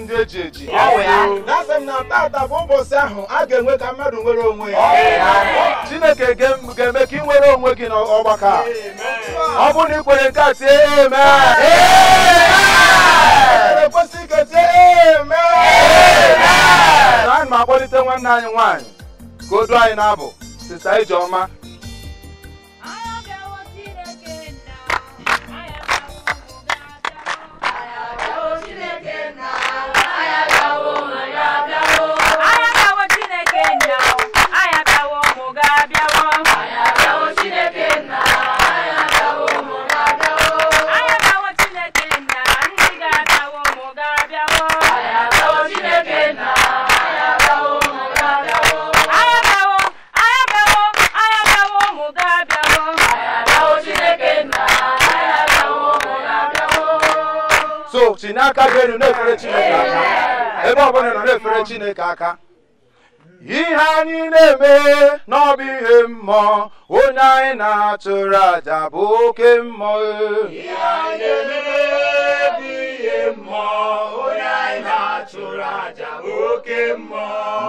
ndị eji eji na-asị m na taata bụ ụbọchị ahụ a ga-enwe ka mmadụ nwere onwe ya chineke ga-eme ka ị nwere onwe gị n'ọgbakọ ọ bụrụ na ị kwere nke a tie amen na anyị ma akpọlite nwanne anyị nwaanyị ka o anyị na-abụ sista ijeọma n'aka gị elu na-efere Chineke aka ebe ọ bụla nọ na-efere Chineke aka ihe anyị na-eme n'ọbụ ihe mmụọ onye anyị na-atụrụ aja bụ oke mmụọ ihe anyị na-eme bụ ihe mmụọ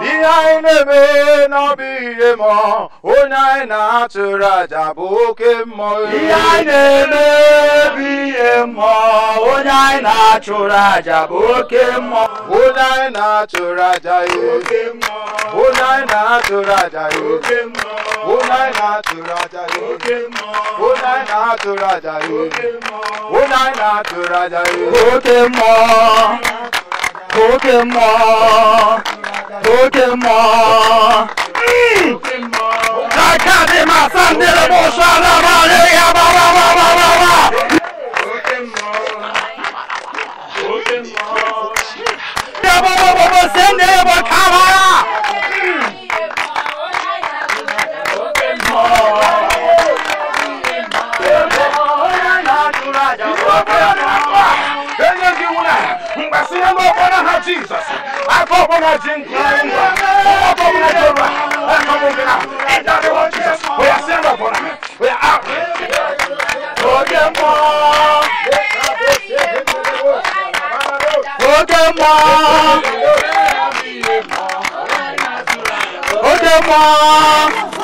Ni anyị na-eme n'ọbụ na-atụrụ aja bụ oke mmụọ. Ihe anyị na-eme bụ ihe mmụọ, onye anyị na-atụrụ bụ oke mmụọ. Onye na-atụrụ aja ya oke mmụọ. Onye na-atụrụ aja ya oke mmụọ. Onye na-atụrụ aja ya oke mmụọ. Onye na-atụrụ aja ya oke mmụọ. Onye na-atụrụ aja ya oke mmụọ. Kocaman Kocaman Kalkadima sandere boşalama Ya baba baba baba Ya baba baba sen de bak havaya Kocaman Kocaman mgbasi ya na ọbọ na ha jizọs aka ọbọ na ji nkwa ngwa ọbọ m na jọba aka m na ịda dị ọ jizọs oya si ya na ọbọ na oya out. oge mmụọ oge mmụọ oge mmụọ.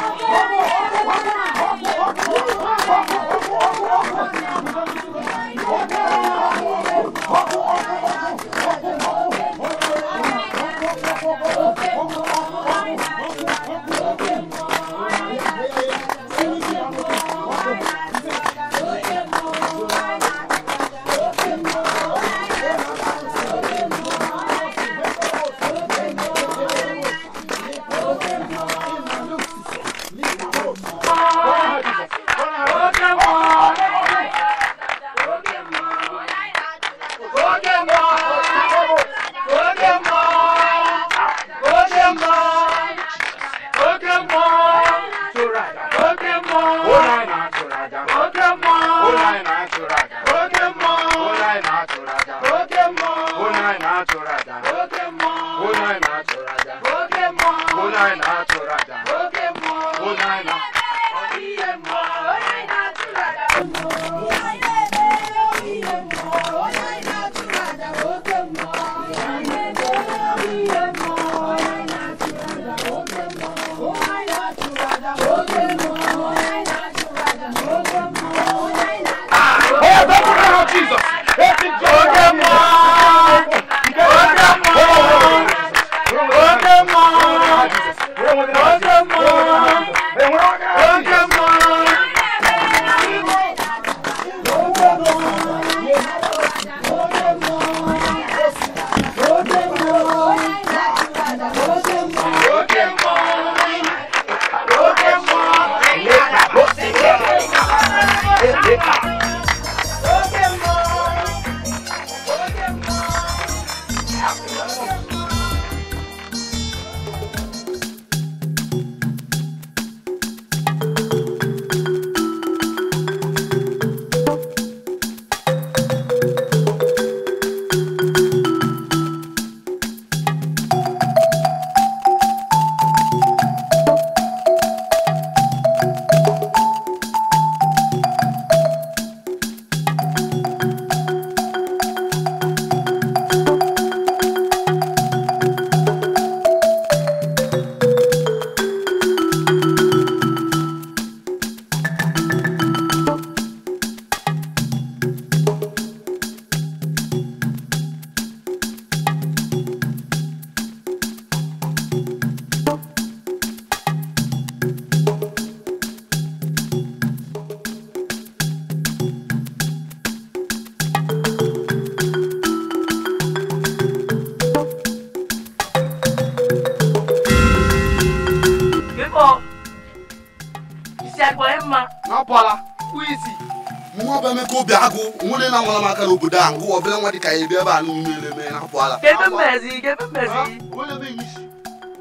wɔ bɛlɛ ŋɔdi ka ye bɛɛ b'a nu mele mɛ n'a fɔ k'e bɛ mɛ k'e bɛ mɛ zi. o le bɛ yi si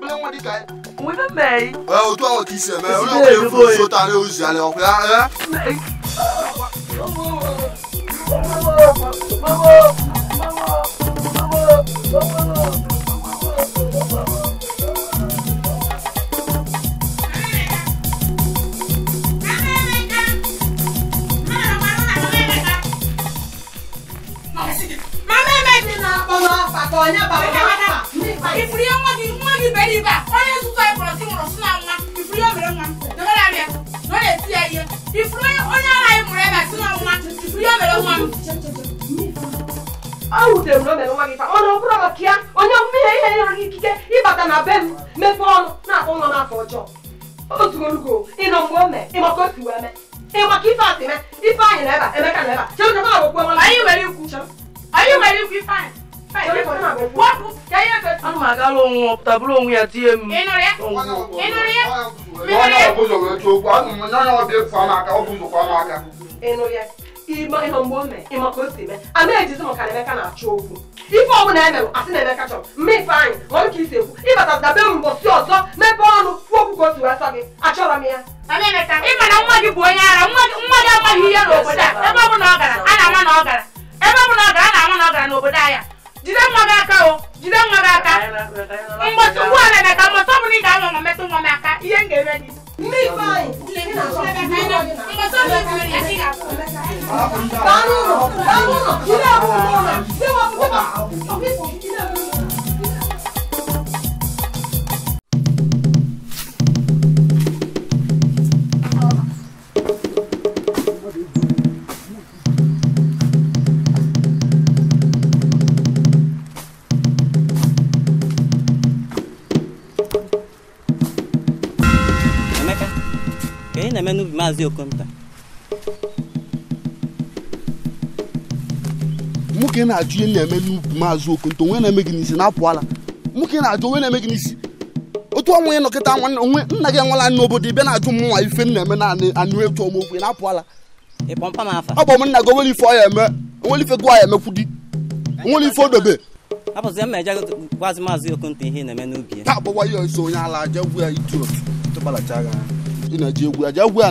bɛlɛ ŋɔdi ka ye. mun bɛ mɛ yi. o tɔ k'i sɛ mɛ o fo so ta ne y'o zi ale ɔ ịnụ ya ịma ihe mgbe o mee ịma ka o si mee a na-ejizi maka na Emeka na-achọ okwu ife ọ bụla emere asị na Emeka na-eme n'ubi maazị na-ajụ ihe na-eme n'ubi maazị onwe na-eme gị n'isi na-apụala nwoke na-ajụ onwe na-eme gị n'isi otu ọnwa nọkịta nna gị ibe na-ajụ mụnwa ife na-eme na anụ etu ọmokwu na-apụala ọ bụ m nna gị onwere ife ọ eme onwere ife ya emekwu di onwere ife odobe ihe onye ala aja gwu ya ina je gu aja gu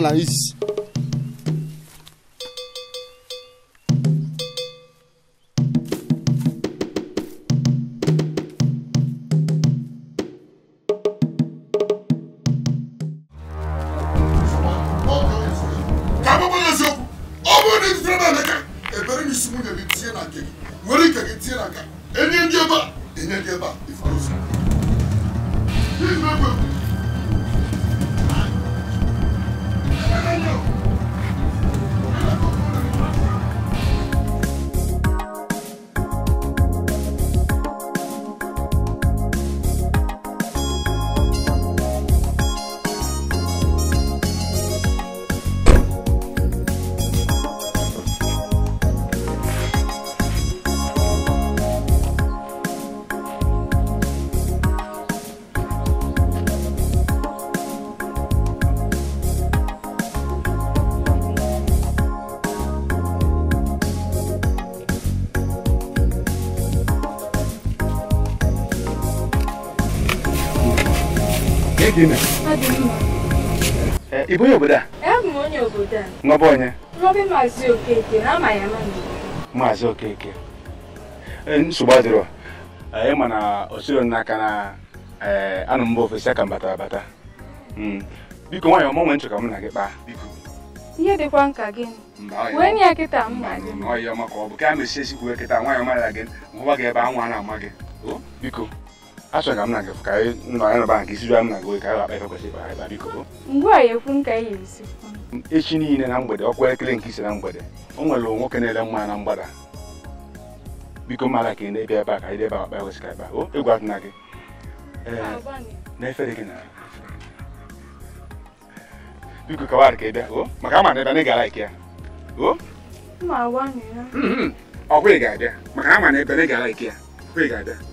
ị bụ onye obodo a a n'ọba onye maazị okeke ya okeke e, nsogbu adịrọ e, ị ma na osiro n'aka na e, anụ mba ofesi aka mbata abata biko nwaanyị ọmụ onwe nchọ ka m hmm. na gị kpaa biko ihe dịkwa nka gị wee nye ya kịta mma gị ọ bụ ka a mesie sikwu kịta nwaanyị mara gị hụwa gị ebe anwụ a na-ama gị biko achọrọ m na gị ka anyị nọrọ nke isi m na gị ka anyị akpa ife kwesịrị ịkpa ịba biko ngwa a ekwu m ka echi niile na mgbede ọkwa elekere nke isi na mgbede o nwere nwoke na-ele mma na mgbada biko mara ka ebe a ka anyị ebe akpa kwesịrị ịkpa egwu ka ka na ebe na ị na ebe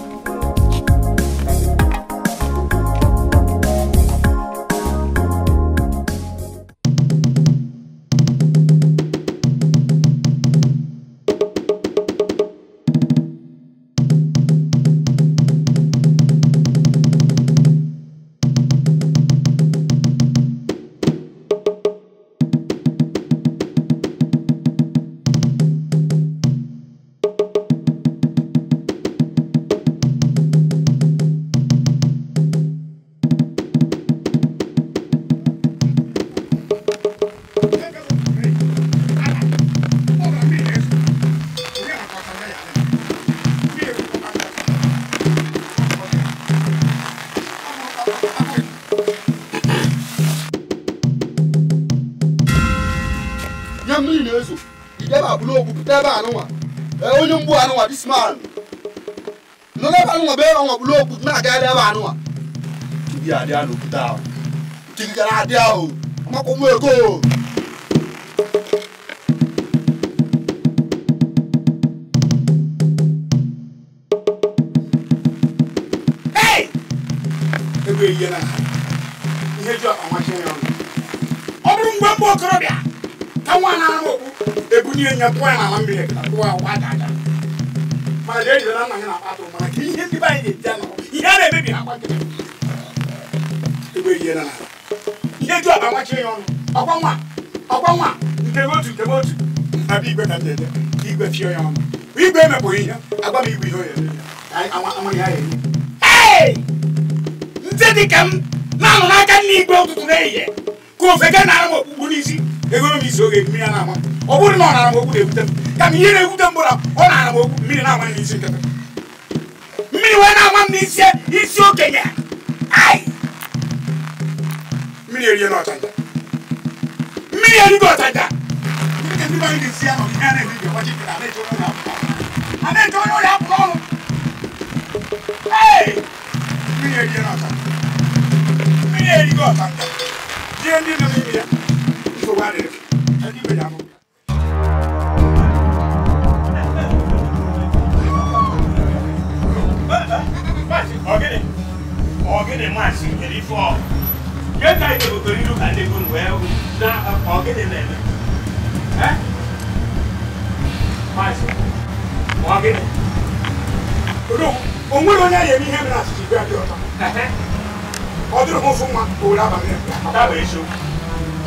abịa n'obodo ahụ nkirikara abịa o makwụkwọ ego ọ bụrụ mgbe mbụ okorobịa ka nwa na-arụ okpu ebunye ya pụọ ya n'ala mmiri mana ejidela nna ya na-akpata ụmụ ka ihe ndị be anyị na-eji anọ ihe a na-emebi akwa nkịtị ebe ihe na ihe ju aba nwachi ya ọnụ ọkwa nwa ọkwa nwa nke otu nke otu na igwe ka dede igwe fie ya ọnụ igwe emepụghị ihe agwa m igwe ihe oye ndị dịka m na-anụ n'aka nne igwe ụtụtụ na-ehihie ka ofe ga na-ara m okpukpu n'isi egoro m isi oge mmiri na-ama ọ bụrụ na ọ nara m okwu na-ebute m ka ebute m bụla ọ nara m okwu mmiri mmiri na ọchaja mmiri erigo ọchaja mmiri erigo ọchaja mmiri erigo ọchaja ihe ndị nọ n'ime ya nsogbu adịghị ndị ibe ya abụghị Ọ gịnị? Ọ gịnị maasị nwere ife ọgụ? ke ka ite ko tori lu ka de kun we u na ko ke de ne eh ma se ko ke de odo onwe lo nya ye mi he na si bi abi ota eh ọdụrụ m fụ nwa owere abalị daba eziokwu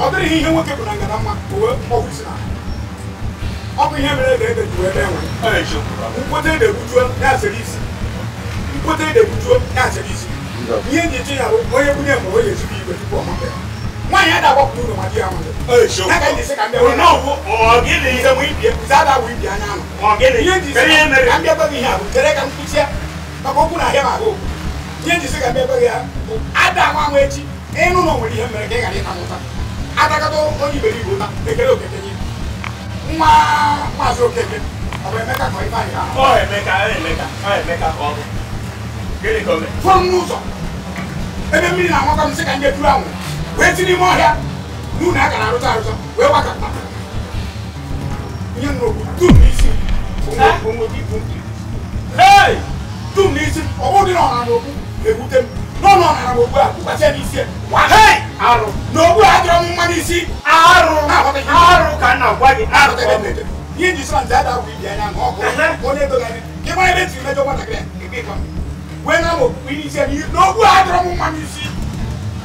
ọ dịrị ihe nwoke bụ na ngana mma owe mkpọgwụ isi na ọ bụ ihe mere ebe ebe juwe ebe enwe mkpote ede gbujuo ya asịrị isi mkpote ede gbujuo asịrị isi ihe ji eche ya bụ onye bunye mụrụ onye ezigbo igwe tupu ọmụpụ ya nwaanyị a ga-agbapụ n'ụlọ ma di ya nwụrụ n'aka ndị isi ka mbịa wee n'ọgwụ ọgịnị ihe mụ ibie bụzi ada wụ ibie anya anụ ọgịnị ihe ji isi ka mbịa gbaghị ihe a bụ chere ka m kwụsịa maka okwu na ahịa ma ahụ ihe ji isi ka mbịa gbaghị ya bụ ada nwa nwa echi ịnụ na onwere ihe mere ka ị ghara ịta mụta adakọta onye iberibe ụta ekele okeke gị nwa maazị okeke ọ bụ emeka ka ọ ibe anyị ọ emeka emeka ọ emeka ka ọ bụ gịnị ka o mee ebe mmiri na-amakọ m sị ka ndị tụrụ anwụ wee ọhịa n'ụlọ aka na-arụta arụta wee gbakọta nye nnukwu dum n'isi eh? dum n'isi ọgwụ dị na n'okwu na-ewute m n'ọnụ ọnara n'okwu a kwụkwasịa n'isi arụ n'okwu a m mma n'isi arụ arụ ka gị arụ ihe sọ ada ibi anya ọkụ onye ebe e mejọ nwatakịrị wena mo wini sɛ ni n'ogu adoro mu ma ni si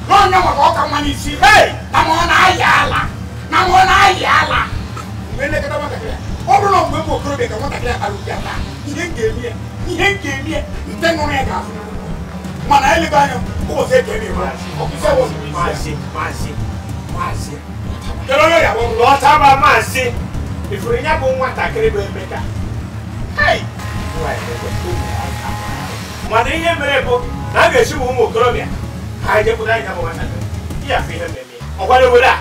n'onye mo ka ɔka si hei na mo na ayɛ na mo na ayɛ ala mgbe ne kata mo kakra ɔbɔ na mgbe mo koro de ka mo kakra aluja ta ihe nke emi yɛ ihe nke emi yɛ nte nnụnụ yɛ ga-afụ mana ele ba anya ụbọ sɛ eke emi yɛ ɔkụ sɛ wɔ maa si maa si maa si kele onye ya bụ lọta ba maa si ifuru ya bụ nwatakịrị bụ emeka hei. mana ihe mere bụ na a ga-echibu ụmụ okorobịa ha ejepụta anya bụ nwatakịrị ya bụ ihe mmemme ọgbara obodo a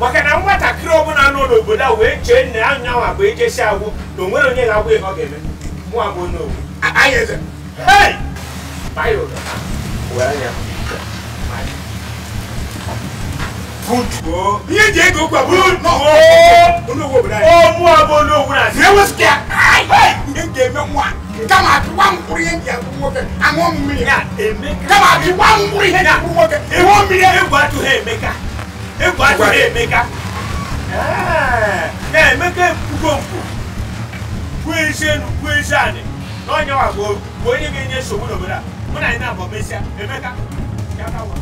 maka na nwatakịrị ọbụla nọ n'obodo a wee chee nne ya nyanwa bụ ejesi agwụ na onwere onye ga-agwụ ihe ọ ga-eme mụ abụ n'owu anyị eze hei baya ụdọ were anya good. Iye jẹ́ kó gbà good. Olówó bìrẹ̀. Ó mú abọ́ olówó rà sí. Ìyẹ́wò sikẹ́. Iye jẹ́ mi wá. Kama a ti wá ń kúrò yẹn jẹ́ kúrò kẹ́. Àwọn mìíràn. Kama a ti wá ń kúrò yẹn jẹ́ kúrò kẹ́. Èwo mìíràn. Ewu atu ha Emeka. Ewu atu ha Emeka. Ẹ Emeka ekwugo nkwu. Kwuo ise nu kwuo ise ani. N'ọnya wa bụ onye ga-enye nsogbu n'obodo a. Mụ na anyị na-abọ mesịa. Emeka. Ya ka wa.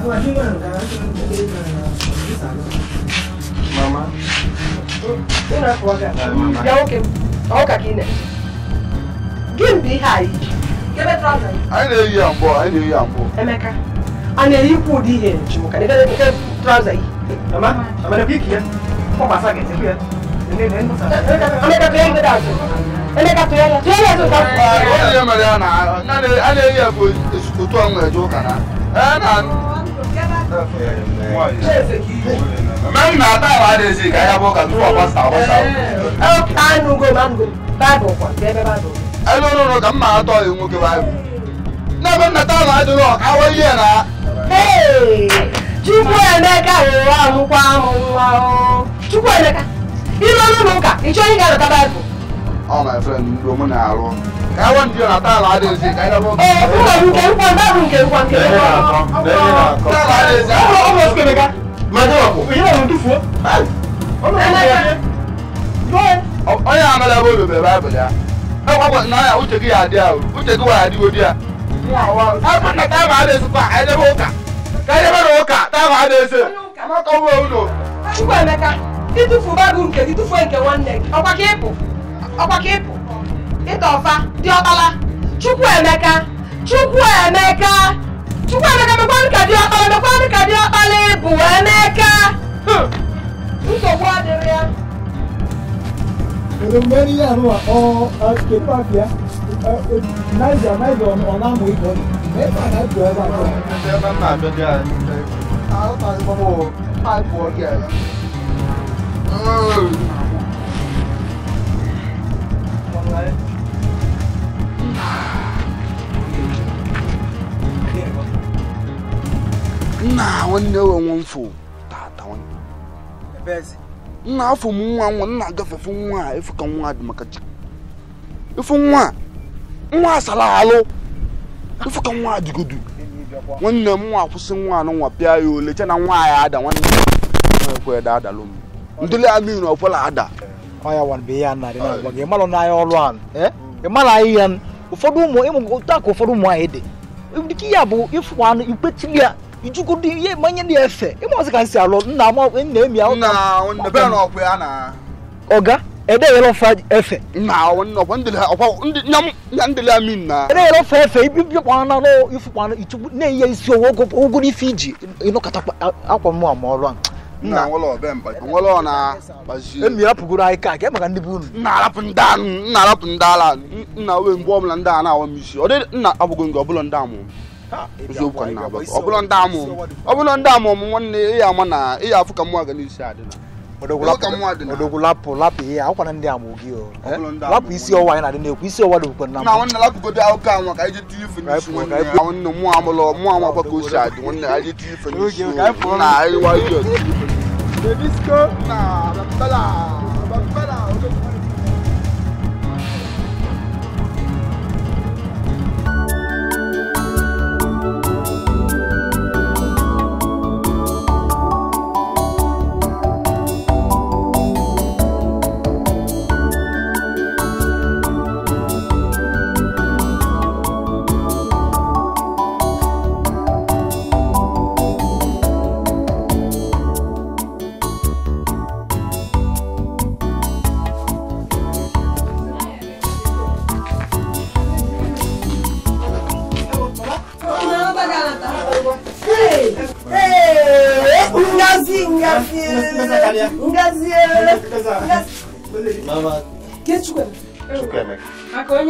Mama. Ina kuwa ga. Ya oke. Ọka ka ị na. Gị mbe ihe a iji. Gebe trọza. Anyị na-eyi ya mbụ, Eu não eyi ya mbụ. Emeka, a na-eyi ikwu ụdị ihe nchi mụ ka na não nke trọza yi. Mama, mama na biki ya. Ọ gbasa gị ebe ya. Emeka tụnye ndị dị azụ. Eu não ya. Tụnye ya azụ ka. Ọ dị ya mere ya na a na-eyi ya bụ otu ọnwa eje ụka na. Ee na. Mẹ́rin náà táwọn adéṣe ìkáyà bọ́ kàtó fún ọ̀pá sàwọ́ sàwọ́. Ẹ kánú go máa ń go báàbò ọ̀pọ̀ bẹ́ẹ̀ bá dọ̀. Ẹ lọ́rọ̀ rọ̀ kà ń máa tọ́ ìwọ̀n kí wáyé. Náà mẹ́rin náà táwọn adéṣe ọ̀káwọ́ yé ẹ̀ náà. Chukwu Emeka rụrụ amụkwa amụ nwa Chukwu Emeka, ilu ọnụ m ụka, ị chọghị ịga lọta Baịbụl all my friend ló mú náà rọ. ẹ wọ́n ti yọ̀nà tá a láàdé ṣe ká ẹ lọ́wọ́. ẹ ẹ fún mi nkè nkwan náà fún nkè nkwan kè nkwan. tá a láàdé ṣe. ọmọ ọmọ sùkè mi ká. máa ní wàkó. èyí náà ló dùn fún ọ. ọmọ ọmọ yẹn. onye amala bụ olùbẹ̀ báyìí ya. ẹ kọ́ kọ́ náà uche gị yà adị a uche gị wà adị odi a. ẹ kọ́ na tá a láàdé ṣe kwa ẹ debe ụka. ká ẹ debe n'ụka tá a láàdé ṣe ọkwa ka ịpụ ịta ọfa dị ọkpala chukwu emeka chukwu emeka chukwu emeka mekwanụ ka dị ọkpala mekwanụ ka dị ọkpala ịbụ emeka hmm. nsogbu adịrị ya èrò mẹ́rin àrùn àkọ́ ẹ̀ẹ́dẹ́gbẹ́ àbíá náìjà náìjà ọ̀nà àmú ìbọn mẹ́fà náìjà ẹ̀bà àjọ. ẹ̀ẹ́dẹ́gbẹ́ àbíá náà àjọ dé àná. àwọn àgbọ̀n mọ̀ àìpọ̀ ọ̀gẹ̀. nna nwanne enwe mfụ tata nna afọ m nwa nwa nna nwa a ka nwa dị maka ịfụ nwa nwa asala alụ ka nwa dịgodu nwanne m nwa kwụsị nwa anọ nwa pịa ya ole che na nwa ya ada nwanne ekwe da adalụ m ada wan bụ ihe a narị na-agwa gị ịmalụ a ịmalụ ụfọdụ ụmụ ịmụ otu aka ụfọdụ ụmụ anyị dị dịka ya bụ ịfụ anụ ikpetili ya ijugodo ihe manye na efe ịmụọsị ka nsi alụ nna ama nna emi ahụ ọga edeyere ọfa efe edeyere ọfa efe ibibịakwana n'ifụkwana ichukwu na-enye isi owo ogo ife iji ịnụkọtakwa akwa mụ ama ọrụ ahụ nna ọna. apụgoro anyị ka ka e maka ndị be unu nna arapụ ndị ala nna we mgbe ọbụla ndị a na-awa m isi ọ dị nna abụgo nke ọbụla ndị amụ eziokwu ka nna abụgo ọbụla ndị amụ ọbụla ndị amụ m nwanne ị ya ama na ị ya afụ ka mmụọ aga n'isi adịla odogwu lapụ lapụ ihe akwụkwana ndị ama ogi o lapụ isi ọwa anyị na-adị na-ekwu isi ọwa dịbụkwa na mụ na anyị go now. Bambala, bambala,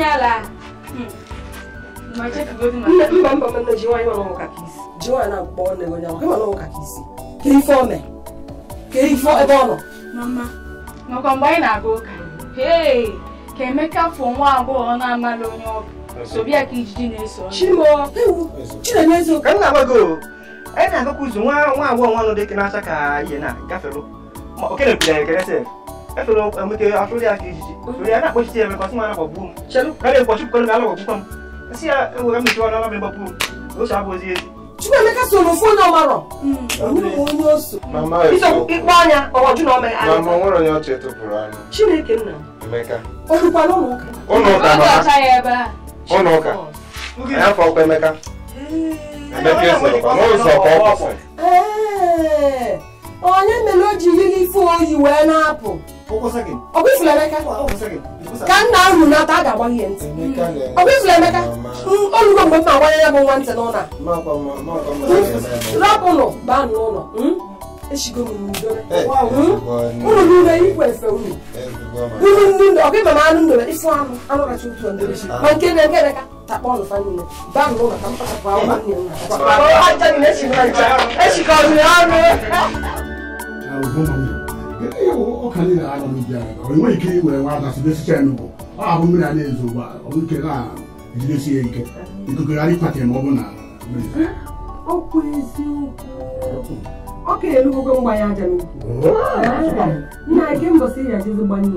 nyala mba mba mba ji nwaanyị nọ ka isi ji nwaanyị na-akpọ nne gị onye ahụ nọ ka isi ka ife o mee ka ife ebe ọ nọ makwa mgbe anyị na-aga ụka hei ka emeka fụ nwa agbọghọ na-amala onye ọbụ sobịa ka ijiji na-eso chimo chinenye eziokwu ka m na-agbago anyị na-agakwa ụzọ nwa nwa agbọghọ nwa nọ dịka na-acha ka ihe na gafere okenepụtara ekeresef ẹ tó lọ ẹmu tẹ asọlẹ akeji sori ana kpọsi tiẹ mẹ kọsi mu ana kọ buom k'ale kpọsi kọlu mẹ ala kọ bu fam esi ya ewu ẹmu tẹ ọlọlọ mẹ bọ buom o sọ abọ zie. Chukwuemeka so no fone ọma rọ. Onye oso. Mama eso. Iso ikpe anya ọwọ ju na ọma ya. Mama nwere onye ọchị tụpụrụ anya. Chineke nna. Emeka. Olukwana ụlọ ụka. Ụlọ ụka mama. Ụlọ ụka ya ebe a. Ụlọ ụka. Ya afọ ọkwa Emeka. Emeka esoro kwa n'ụzọ ọkwa ọkwa. Ee. Onye mere o ji yiri ife oyi wee na-apụ. ọ kwụfụrụ Emeka ka nna ahụ na a ga-agba ihe ntị ọ kwụfụrụ Emeka olugo mgbe m na-agbanye ya bụ nwa ntị n'ụlọ rapụnụ baa n'ụlọ niile ikwe efe unu ndị ma anụ ịfụ anụ otu ma nke na nke Emeka takpọ ọnụ fa niile baa n'ụlọ ka m kpachapụ nne m ọnụ ọka niile anya m bịa onwe ike were nwa dasibesicha ya n'ugbo ọ abụ mmiri a na-ezo ugbu a ọnwụ ike na-ejidesi ya ike ikokogharị ịkpata ma ọ bụ na ọkụ eziokwu ọ ka elugogo mgbanye aja n'ukwu nna gị mbọsị ya jezi gbanye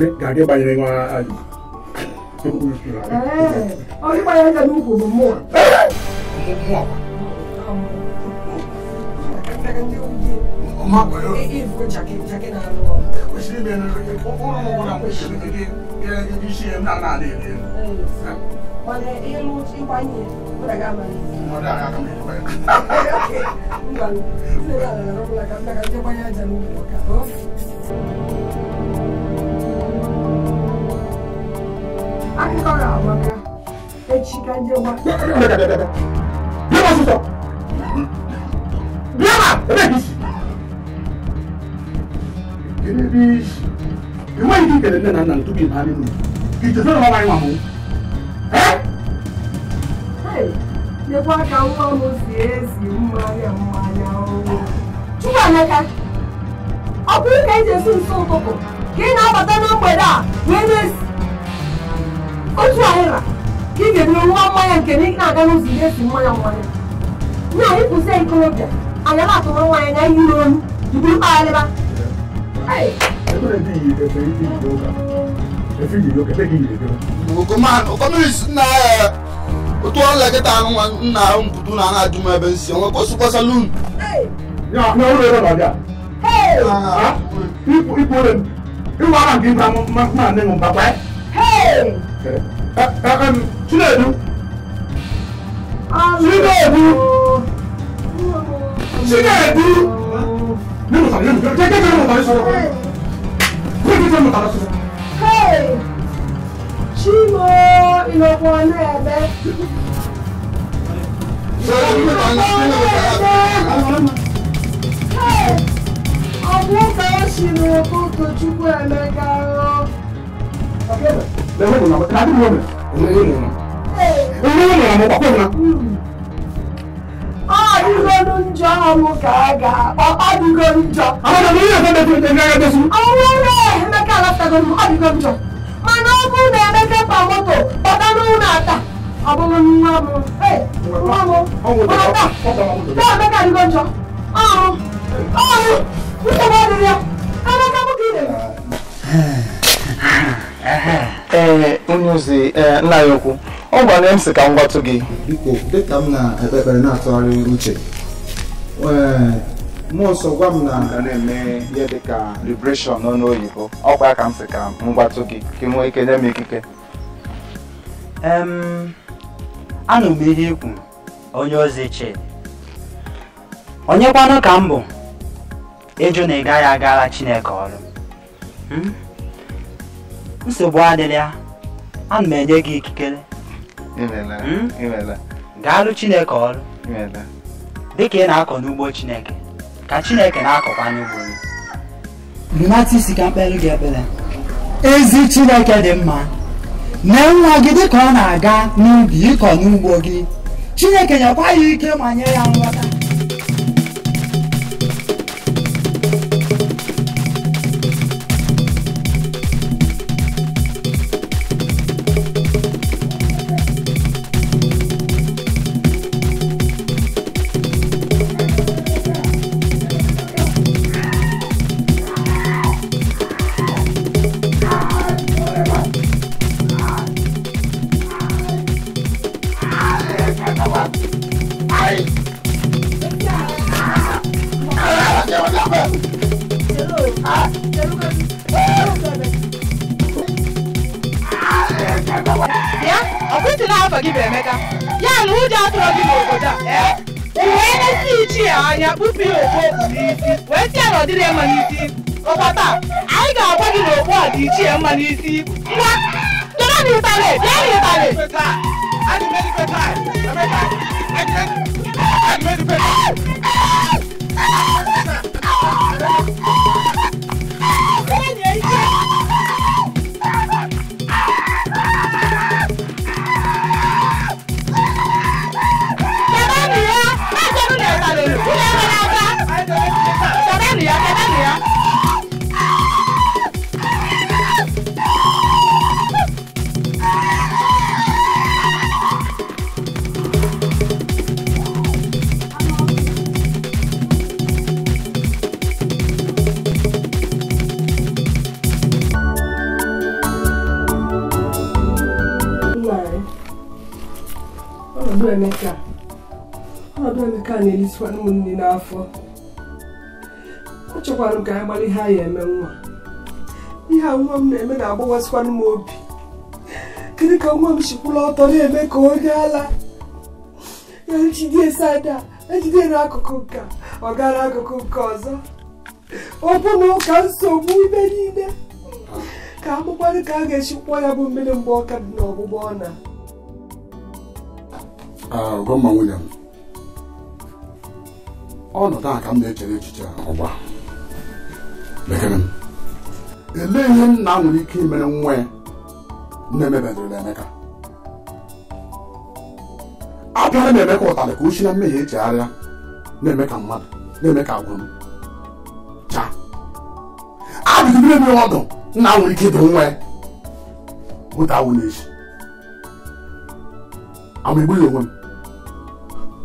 ya ka gị banyere nwa ajụ ọ gị gbanye aja n'ukwu bụ mmụọ ọmọ àgbàdo. ìfúró jàkẹ́ jàkẹ́ náà lọ. kò sí ibi ẹni lóye kó kó lóun kó náà kó sí ibi yẹ ibi sí ẹ náà náà lè lè. wọlé elu tí wá yẹ kó dàgbà máa yẹ. mo dà ara kan mi nípa yẹn. ok nígbà mi sílẹ̀ náà lọ́wọ́ lọ́wọ́ la kàmínà kàmínà jẹ́ akíkọ̀rọ̀ àwọn ọ̀gá echi ka jẹ́ bí wọ́n ti sọ bí wọ́n bá ẹ̀ bí sọ gini bi iwe yi kele e ne na na ntubi na ni mu ite se na wa wa mu ka nwa mu si ezi mmanya mmanya owo chukwa ọ bụrụ ka eji nso ụtụtụ ka ị na-abata na mgbede a wee na-esi otu ahịra ka ị ga-eburu nwa mmanya nke na ị na-aga n'ụzọ ihe esi mmanya mmanya na ịkwụsị ikorobịa anya na-atụrụ nwaanyị na n'olu iburu kpagharịba otuola kịta nna ahụ mputu na ana ajụ m ebe nsi onwe kwesịkwa salun iwa ara nke ibe ma nne m baba chinedu chinedu chinedu nínú tàbí nínú jẹ́ jẹ́ nínú tàbí sọ̀rọ̀ jẹ́ jẹ́ nínú tàbí sọ̀rọ̀. ṣímo ìlọ́pọ̀ ọ̀nà ẹ̀bẹ̀. ọ̀pọ̀ kan ṣìnà kó tojúbọ ẹ̀mẹ́ga rọ. njọ ọnwụ ka a ga-akpọ ọdịgo njọ ọnwụrụ emeka alatago m ọdịgo njọ mana ọ bụrụ na emeka pa moto kpọta n'ụlọ ata ọ bụrụ nwa m nwa m mata taa emeka adịgo njọ ọrụ ọrụ nsogbu adịrị ya emeka bụka idere ee onye ozi nna ya okwu ọ gwara m sị ka m gwatụ gị biko dịka m na-ekpe na-atụgharị uche mmụọ nsọ gwa m na a na-eme ihe dị ka liberation n'ọnụ oyibo ọkwa ka m sị ka m gbatụ gị ka nwee ike nye m ikike anụ m ihe ikwu onye ozi chidi onye kwanụ ka m bụ ịjụ na ị gaghị agara chineke ọrụ hmm? nsogbu adịghị ya ana m enye gị ikikere hmm? gaalụ chineke ọrụ dịka ị na-akọ n'ugbo Chineke ka Chineke na-akọkwa n'ugbo gị rịmata isi ka mkpere gị ebere ezi Chineke dị mma nee nwa gị dịka ọ na-aga n'ubi ịkọ n'ugbo gị Chineke nyekwa ya ike ma nye ya nghọta ní sí. Emeka ọnọdụ Emeka na-elisịkwa ụmụnne n'afọ achọkwara m ka anyị gbara ihe a ya eme nwa ihe a nwa m na-eme na-agbawasịkwanụ m obi kedu ka nwa m chikwụla ọtọ na-eme ka onye ala ejide ejide n'akụkụ nke ọ gara akụkụ nke ọzọ ọ bụ na ụka nsogbu ime niile ka amụkwanụ ka a ga-echikwa ya bụ mmiri mgbe ọka dị n'ọgbụgbọ ọ na gọọman William ọnọdụ a ka m na-echere echiche ọgba elee ihe nna nwere ike imere nwa ya na-emebedịrịla Emeka abịara m Emeka ụtarị ka uchi na mmehie echegharịa na-eme ka mmadụ na-eme ka agwụrụ chaa abụzibere m ọdụ nna nwere ike ịdị nwa ya bụta awụ n'echi ama egbughị onwe m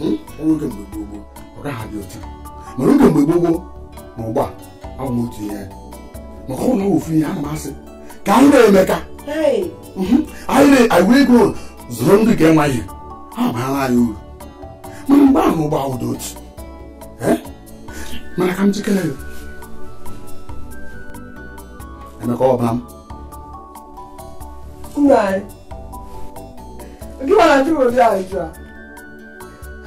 enweghị mgbe gbogbo ọ gaghị adị otu mana oge mgbe gbogbo na ụgbọ a awụ m otu ihe maka ụlọ ofu ihe ana m asị ka anyị na-emeka anyị wee go zụrụ ndị ga-enwe ihe ha baara anyị uru mana mgbe ahụ ụgbọ ahụ dị otu mana ka m jikere ya emeka ọbara m Nna anyị, gịwa na ndị obodo anyị jụrụ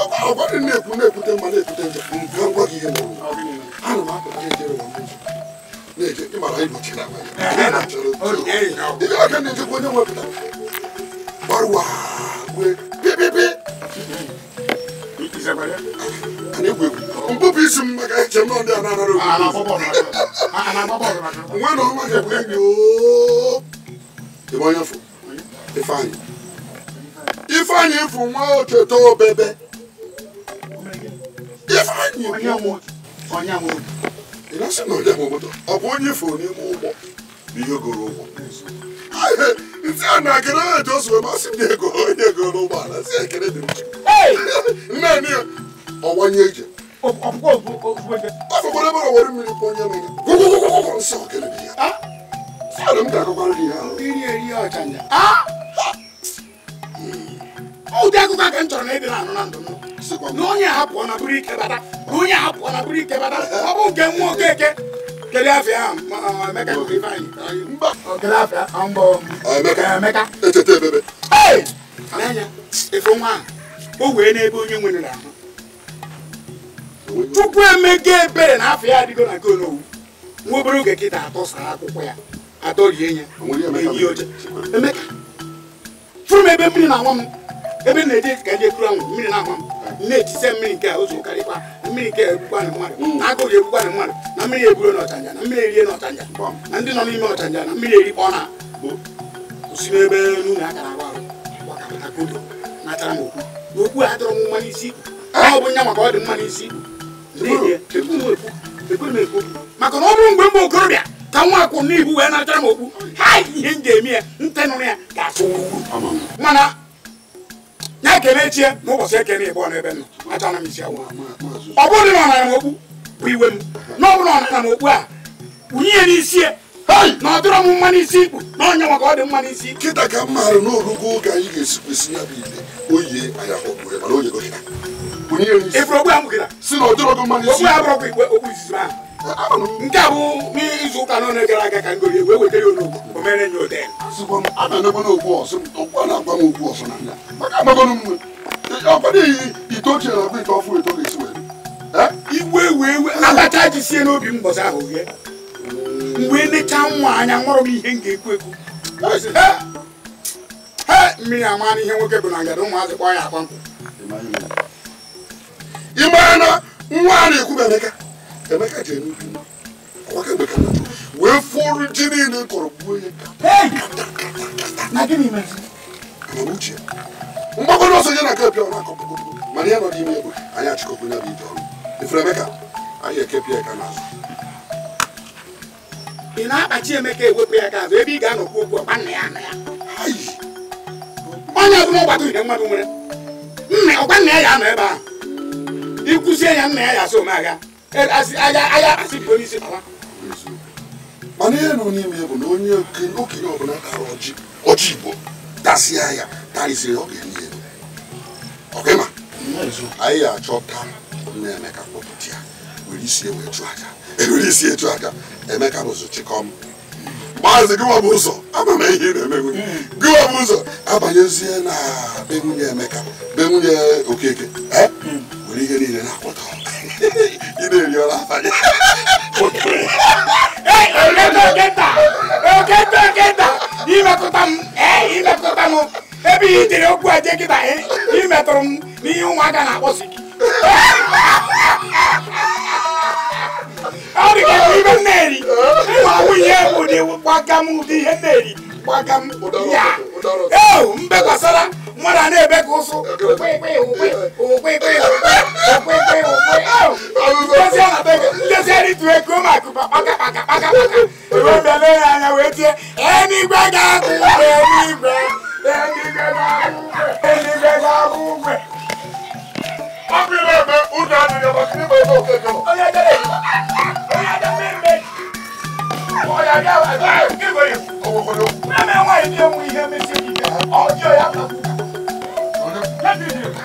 Dɔnku aw ko ne kun ne kun tɛ ma ne kun tɛ jɛ. N bɔ k'i ye mɔgɔ. Hali maa kun tɛ jɛrɛ wa n bɛ jɛ. Ne ye i mara i don ci la. I b'a kɛ nin tɛ ko ne ma bila. Bari wa koyi pepepe. Ani koyi n ko a n'a nana. A n'a n'a fɔ bɔrɔ la. N ko n'o ma kɛ koyi yoo. I b'a anyị onye mụ onye mụ ị na-asị na onye mụ moto ọ bụ onye ifo n'ime ụgbọ bụ ihe goro ụgbọ ntị a na akere na eji osu masị m na ego onye goro ụgbọala si ekere dị nne nne ọgbanye ije afọkwara ebe ọwere mmiri kwanye mmiri gwụgwụgwụgwụ nsọ kere ya sị adụ m ga-akọkwara gị ya iri eri ọchanja ụdị akụkọ aka m chọrọ na ịdịra anụ na ndụ m na onye ahapụọ na bụrụ ike bata na onye ahapụọ na bụrụ ike bata ọ bụ nke nwa okeke kedu afọ ya emeka kedu afọ ya mbọ emeka etete ebebe n'anya efe nwa ahụ o wee n'ebe onye nwere ahụ tupu emega ebere na afọ ya adịgo na nke onowu nwa obere oge kịta atọsara akwụkwọ ya atọrie ya eyi oche emeka furu m ebe mmiri na-anwa m ebe na-eje ka eje kuru anwụ mmiri na-ama m na mmiri nke a ụzọ karịkwa mmiri nke egbukwa hmm. na mmadụ na agụghị egbukwa na mmadụ na mmiri e n'ọchanja na mmiri erie n'ọchanja na ndị nọ n'ime ọchanja na mmiri erikpọ na bụ si n'ebe n'ụlọ akara arụ na okwu a dọrọ mgbe mgbe okorobịa ka nwa akwụ n'ibu wee m okwu m eme na-ekene echie na ụbọchị ekene ịbụọ n'ebe nọ achọna m isi agwa ọ bụrụ na ọ m okwu bụ iwe m na ọ bụrụ ọnara m okpu a wunye ya n'isi na ọ dịrọ m mma n'isi ikpu na onye maka ọ dị mma n'isi kịta ka m maara na oge anyị ga-esi ya bụ ile oyi anya okpure mana oyi gị ịbụrụ okpu a mụ gịra si na ọ dịrọ mma n'isi okpu a bụrụ okwu izizi ahụ nke a bụ n'izu ụka n'ọnụ gara aga ka ngori wee wetara ya o mere ode igwe wee abacha ji sie n'obi m ahụ ghe mgbe nechaa nwa anya nwụrụ m ihe m ga-ekwu ekwu mmiri ama na ihe nwoke bụ na ngada ụmụazị kpọ ya na nwa a na-ekwu Emeka ji eme ọkwa kemgbe ka wee fụrụ ji niile kọrọ gbuo ya mgbagoro ọsọ ya na nke pịa ọ na-akọpụgo mana ya nọ n'ime ebe anyị achịkọkwu ya bụ ije ọrụ ifere Emeka anyị ekepịa ya ka n'azụ e ị na-akpachi Emeka ewepụ ya ka azụ ebe ị ga-anọkwu okwu ọkpa nna ya nna ya onye ọbụla ọgbata ihe mmadụ nwere nna ọkwa nna ya ya anọ ebe ahụ ịkwụzie ya nna ya ya asị omeagha agha asị polisi ala mana ihe nụ n'ime bụ na onye okenye ọbụla kara ọjị ọjị igbo tasịa ya tarịsịrị ọ ga-enye elu ọkịma anyị ga-achọta nna emeka kpọpụta ya were isi ewe chụ aja ewere isi echu aja emeka bụzụ chịkọm maazị gịwa bụ ụzọ ama m ihe na-emegbu gịwa ụzọ abanyezie na be emeka be okeke were ihe niile na-akpọtọ ị na-eri ọra abalị ịmekọta m ịmekọta m ebe ihe jiri okwu eje kịta imetụrụ m n'ihe ụmụaka na-akpọsi ọ dị ka ibe m na-eri ma nwunye ụdị gbaga m ụdị ihe m gbaga m ya ee mbe gbasara mọ́ra náà bẹ́ẹ̀ kó so òpè pé òpè òpè pé òpè pé òpè òpè lọ́sẹ̀ ní tuwé kó máa kú pàkàpàkàpàkà ìwé bẹ̀ lórí àyàwó etí ẹni gbẹ́gà kú ẹni gbẹ ẹni gbẹ́gà kú ẹni gbẹ́gà kú gbẹ. wọ́n fi bẹ́ẹ̀ bẹ́ẹ̀ ó dáa nìyẹn bá kí ni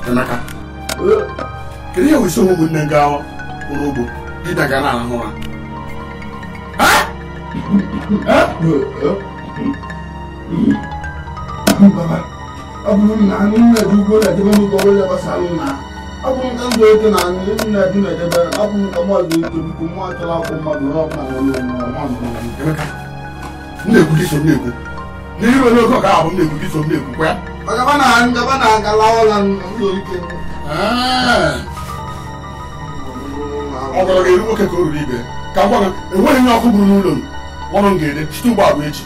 Tanaka. Kiri yawo iso mu nne gawa urugo didaga na ahụ ha. Ha? Ha? Baba, abụrụ m na anụ nna dị ugbo na-edebe n'ụlọ ọrụ ya gbasa anụ na abụ m ka ndụ eke na anụ nna dị na-edebe abụ m ka mmadụ eke biko nwa achọla akwụ mmadụ n'ọkpa na ụlọ ọrụ ọma ndụ. Emeka, m na-ekwu dị so m na-ekwu. n'iru onye oge ọka abụ m na-ekwu gị so m na-ekwukwa ọ gwara ga-eru nwoke ka o ruru ibe ka gwa enweghị onye ọkụ buru n'ụlọ m ọrụ m ga-ede chite ụgbọ abụ echi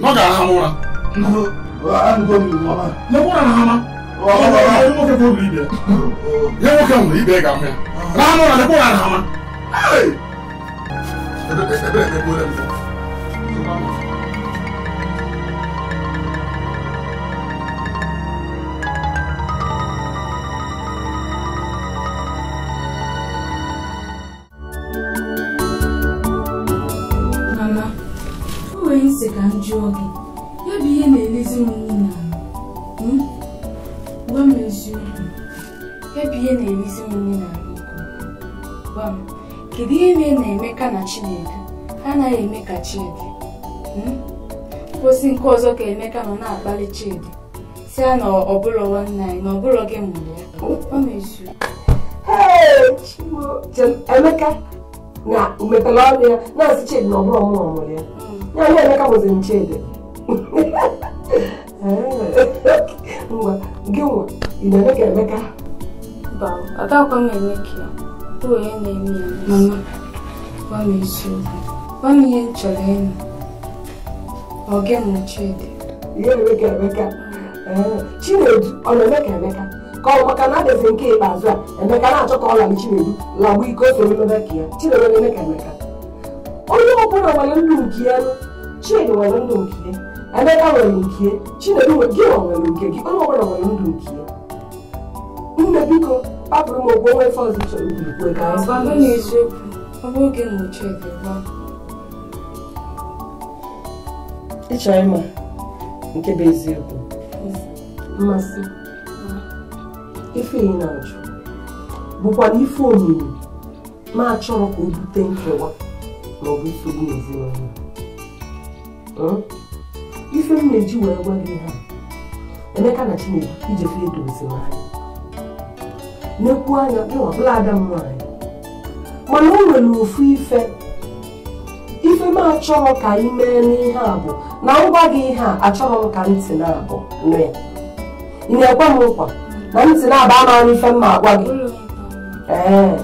na ọ ga-aha ụra nwoke nwere ibe ga-ahụ ya raha ụra lekwa ụra na hama eji ihe na-elezi m nwunye hmm? gwa m eziokwu ya ihe na-elezi m na na Emeka na Chinedu anaghị eme ka Chidi hmm? kwụsị nke ọzọ ka Emeka nọ na-akpali Chidi si ya na ọbụlọ gị mụrụ ya gwa m eziokwu na na-asị Chidi mụrụ ya hmm. nwaanyị Emeka bụzi nchede ngwa gị nwa ị na-eme ka Emeka adakwa m eme ka ya bụ onye na-eme ya eh, mama gwa m eziokwu gwa m ihe m chọrọ ịnụ ọ gị m Chidi ihe eme ka Emeka Chinedu ọ na-eme ka Emeka ka ọ maka na nke ikpeazụ a Emeka na-achọ ka ọ la m Chinedu lagbu ike o soro mebe ka ya Chinedu na-eme ka Emeka onye ọbụla nwere ndụ nke ya chidi nwere ndụ nke emeka nwere nke chinedu gị nwere nke gị onye ọbụla nwere ndụ nke ya nne biko kpapụrụ m ogwe onwe fọzi chọrọ igwe ka ịchọ ịma nke bụ eziokwu mmasị ife ị na-ajụ bụkwa ife omimi ma achọrọ ka o bute nkewa maọbụ nsogbu ezinụlọ ife m na-eji wee gwa gị ha Emeka na Chineke ijefe edozi anyị nekwu anya ọbụla ada m nwaanyị mana o nwere ofu ife ife m achọghị ka anyị mee n'ihe a bụ na ngwa gị ihe a achọghị m ka ntị na-abụ mee ị na-ekwe m nkwa na ntị na-aba amaghị ife m ma agwa gị ee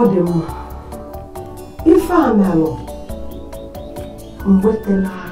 ọ dị mma with the wetala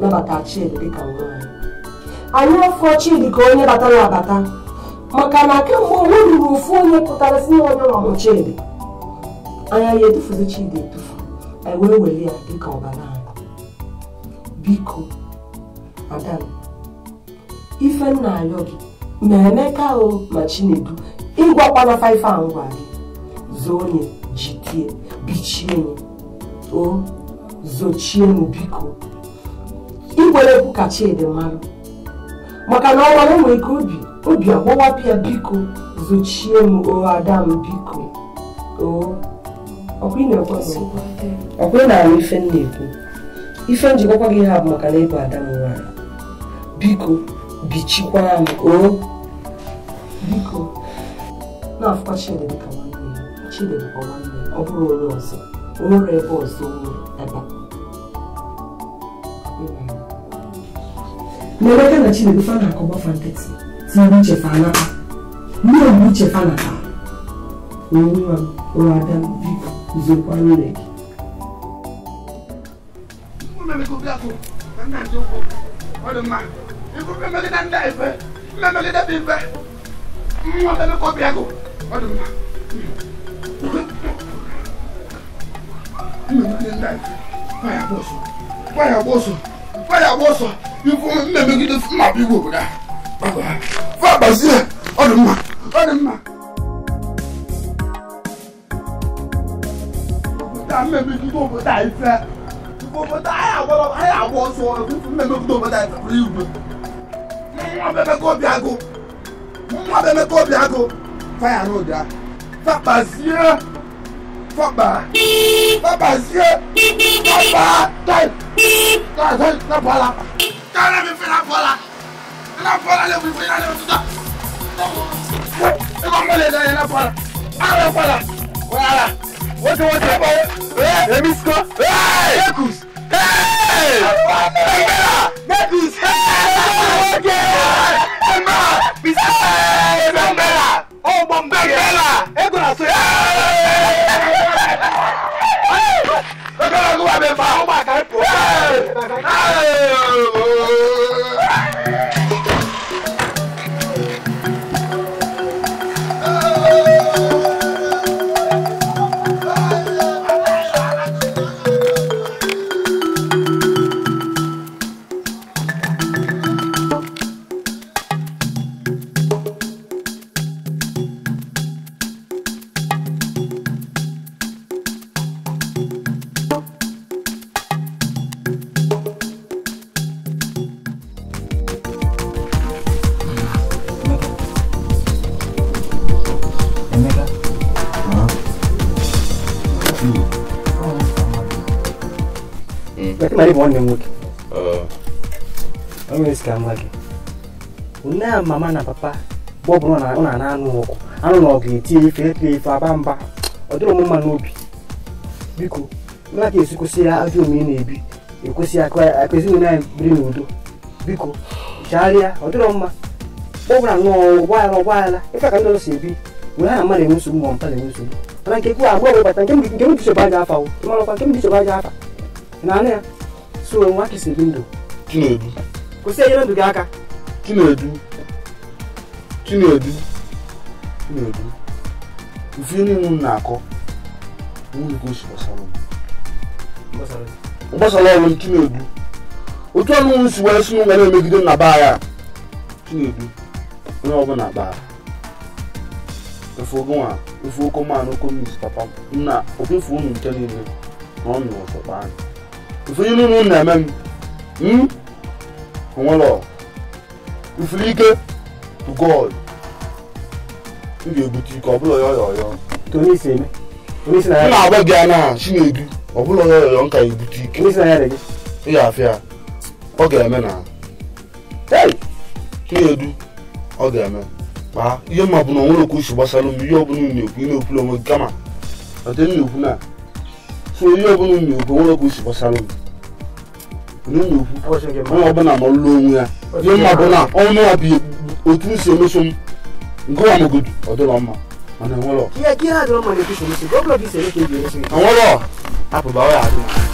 nabata Chidi dịka nwanyị anyị afọ Chidi ka onye batara abata maka na kemgbe onwe ruru ofu onye pụtara si onye ọmụ Chidi anya ya edufuzi Chidi edufu anyị wee ya dịka ọbara biko madam ife nna ayọ gị ma Emeka o ma Chinedu ịgwakwana faife a ngwa gị zoo jitie bichienye o zochienụ biko igbere egwu ka Chidi mara maka na ọ mara nwere ike obi obi agbọwapịa biko zochie m o ada m biko ọkwa ị na-ahụ ife m na-ekwu ife m jikọkwa gị ha bụ maka na ịbụ ada m nwanyị biko bichikwa m o biko na-afụkwa Chidi dịka nwanne ya Chidi bụkwa nwanne ọ bụrụ onye ọzọ o nwere ebe ọzọ ebe a meleka na chineke fa na akọba fa nkịtị tinye uche fa anata mmiri bụ uche fa nata nwa nwa ada biko zokwa nwere gị mmemegide ndị a ife mmemegide bụ ife mmụọ bemekọbịa gụ ọ dị mma mmemegide ndị a ife gbaya gbọsọ gbaya gbọsọ fáyàwó sọ ifun mímẹ́mí gidi fún màbí wò wúdà fún àgbàsí ẹ̀ ọ̀dùn mà ọ̀dùn mà. tá a mẹ́mí gidi òbò tá a yìí fẹ́ òbò tá a yà wọ́ lọ a yà wọ́ sọ ifun mẹ́mí gidi òbò tá a yìí fẹ́ rí ìwé. mọ́ bẹ́ẹ̀ kọ́ bí aago mọ́ bẹ́ẹ̀ kọ́ bí aago fáyà náà dá fún àgbàsí ẹ̀. Papa. Papa sie. Papa tai. Ta sai na pala. Ta na mi fi na pala. Na pala le mi fi na le mi ta. Ko mo le da na pala. Ara pala. Wala. Wote wote ba. Eh, le mi sko. Eh, Yekus. Hey! Mekus! Hey! Okay! Emma! Bisa! bẹ fa. ó máa ká ipò. bụ nwanne m nwoke onye isi ka m gị nne ya mama na papa bụ ọ na na anụ ọgụ anụ na ọgụ etinye ife epe ife aba mba ọ dịrị mma n'obi biko nna ka esi kwụsị ya ajọ omume na-ebi ekwesị ya akpa ezinụlọ anyị biri n'udo biko chegharịa ọ dịrọ mma ọbụla nnọọ ụgbọala ụgbọala ife ka ndị ọzọ si ebi wee ha na mmadụ enwe nsogbu ma mpa na-enwe nsogbu mana nke kwuo abụọ bụ bata nke m bisoba aja afa marakwa nke m bisoba aja afa na anụ ya so nwa ka si ebi ndụ chinedu kwụsị enyere ndụ gị aka chinedu chinedu chinedu ife niile m na-akọ nwunye ka o si gbasara m gbasara ọrụ m chinedu otu ọnụ m si wee si n'ụwa na-emegide m na baa ya chinedu onye ọbụla baa efu ogo nwa efu oko mmanụ oko mmiri papa nna okwefu unu nke niile na ọ nụrụ ọsọ kpaa anyị ifuru ilu unu na-eme m onwere hmm? ifuru ike to god m ga-ebute ike ọbụla ya ọyọyọ m na-agba gị anya na chinegi ọbụla ya ọyọyọ m ka ebute ike ị ga-afịa ọ ga-eme na na edu ọ ga-eme kpaa ihe mma bụ na onwere okwu uche gbasara m ihe ọ bụla unu na-ekwu ị na-ekwula onwe gị kama na ekwu na so ihe ọbụla m na-ekwu nwere okwu si gbasara m onye ọbụla ma lụọ onwe ya ihe mma bụ na ọnụ ya bụ otu m si emeso m nke wa mogodu ọ dịrọ mma mana enwerọ enwerọ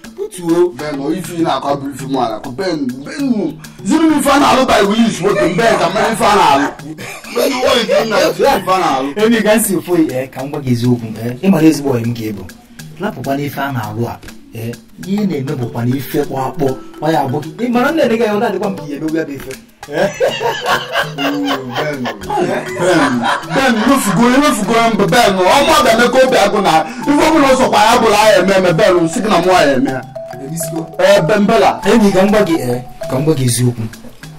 tuo. bẹ́ẹ̀ nọ ifi na akọ abiri fi mu ala ko bẹ́ẹ̀ nu bẹ́ẹ̀ nu ziri mi fa na alo ba iwu yi suwo tun bẹ́ẹ̀ ka mẹ́rin fa na alo bẹ́ẹ̀ ni wọ́n yi tun na ziri fa na alo. ebi ka nsi foyi ẹ ka n gwa gị eziokwu ẹ ị mara ezigbo ọyị m ga-ebu lapụkwa n'ife a na-alụ a ẹ ihe na-emebụkwa n'ife kpọ akpọ ọ ya bụ ị mara nne ga ya ọ na-adịkwa m ka ihe emegbu ya bụ ife bẹẹni ló fi gorí ló fi gorí mbẹ bẹẹni ọmọ abẹmẹ kó bẹ ẹgùn náà ifowópamọ sọpọ ayábọlá ayẹmẹ mẹ bẹẹni sígínà mú ayẹmẹ. bembela enyi ka mgba gị ee ka mgba gị eziokwu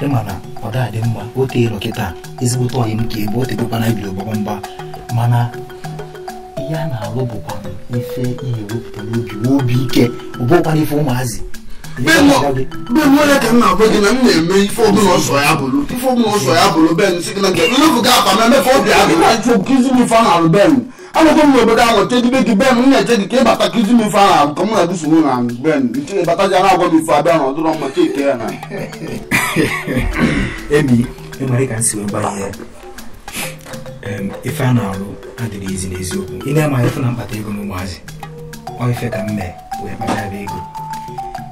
ịma na ọ dị mma o teela kịta ezigbote ọyị m ka ebe o tetekwana ibiri ọgbọgbọ mgba mana ihe a na-alụ bụkwa ife ihe wepụta n'obi obi ike ọ ife ụmụazị benwere ka m na-agwa gị na m na ife ọbụla ya bụrụ ya bolo ben si gị na nke nlefu gị afa na-achụ kizi m benu a na-alụ ben m n'obodo ahụ chedibe gị ben na-eche gị ka ịbata kizi m ife a na-alụ ka m na-adụso m na ben ịbata ji na-agwa m ife abịa na ọdụrọ mma chike ya ka si ife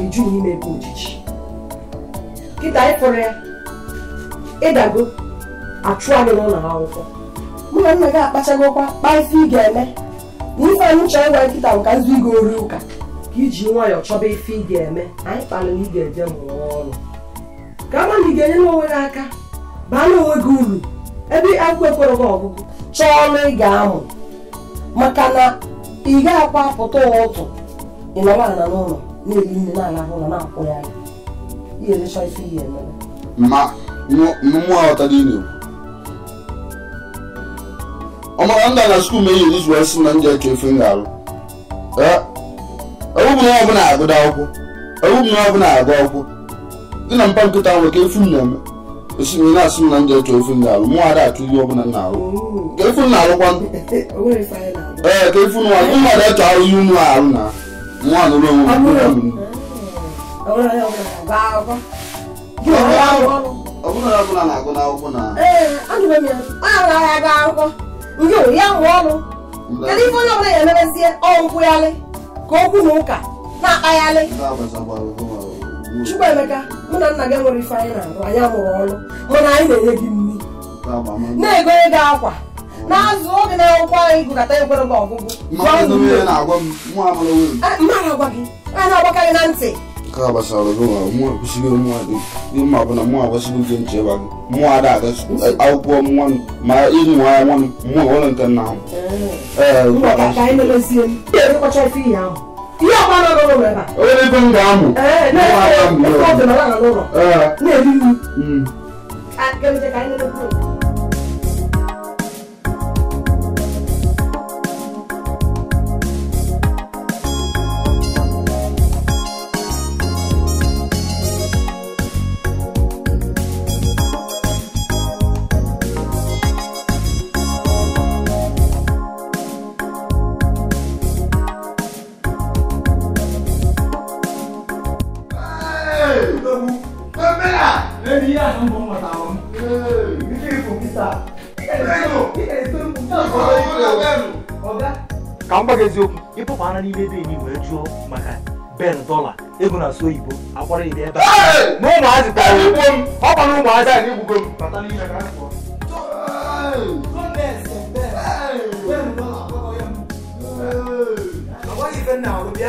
iju n'ime ebe ojiji kịta anyị fọrọ ya ịdago achụ anyị n'ụlọ akwụkwọ mụ na nna gị akpachagokwa kpaa ife ị ga-eme na ife anyị chọrọ ịgwa nkịta bụ ka nzu ị ori ụka ka iji nwayọọ chọba ife ị ga-eme anyị kpalụ na ị ga-eje mụọ ọrụ ka ama na ị ga-enye n'onwe gị aka baa na onwe gị uru ebe agụụ ekwere gị ọgụgụ chọọ ọrụ ị ga-amụ maka na ị gaghị akwa pụta ụtụ ị ịnọrọ ala n'ụlọ na n'ala na ya ihe ma mmụọ aghọtara dị na ọ mara ndị na skuul wee sị na ndị eke efe ga-alụ na ọbụla agụda akwụkwọ ewubu na ọbụla agụ akwụkwọ dị na mpa nkịta ahụ ka efu na-eme esi m na m na ndị eke efe mụ ada atụ ihe ọbụla nna arụ ka efu na ee ka efu m ụmụ ahụ ihe nwa alụrụ onwe na ya mụọ ọnụ kedu ihe onye ya ga-emerezie ọnkwụgharị ka okwu na ụka na-akpagharị Chukwuemeka mụ na nna gị nwere ife anyị na-arụ anyị amụrụ mana anyị na-enye gị nri na-egonye gị akwa na-azụ oge na-enwekwa anyị gụkọta ekwere ọgụgụ a na na ntị nke a akwụkwọ nwa nwa ụlọ nke nna m nọ n'ụlọ m ee eziokwu ịpụpụ anya n'ime ebe enyi wee jụọ maka ben dọla ego na asụ oyibo akwara ibe ebe a na ụmụazị tara igbo m ọ gbara ụmụazị a na-egbugo m bata n'ihe ka Bẹ́ẹ̀ni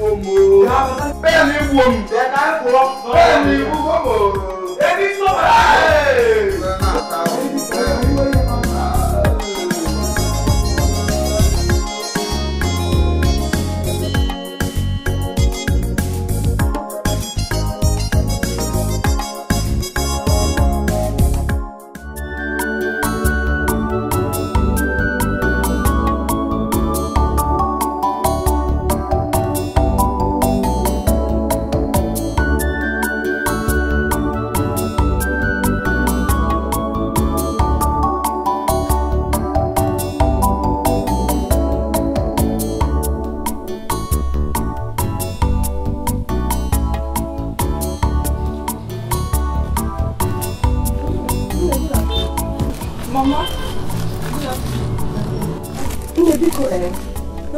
wo mi. Bẹ́ẹ̀ni wo mi. Bẹ́ẹ̀ni wo mi. Ebi sọ̀rọ̀.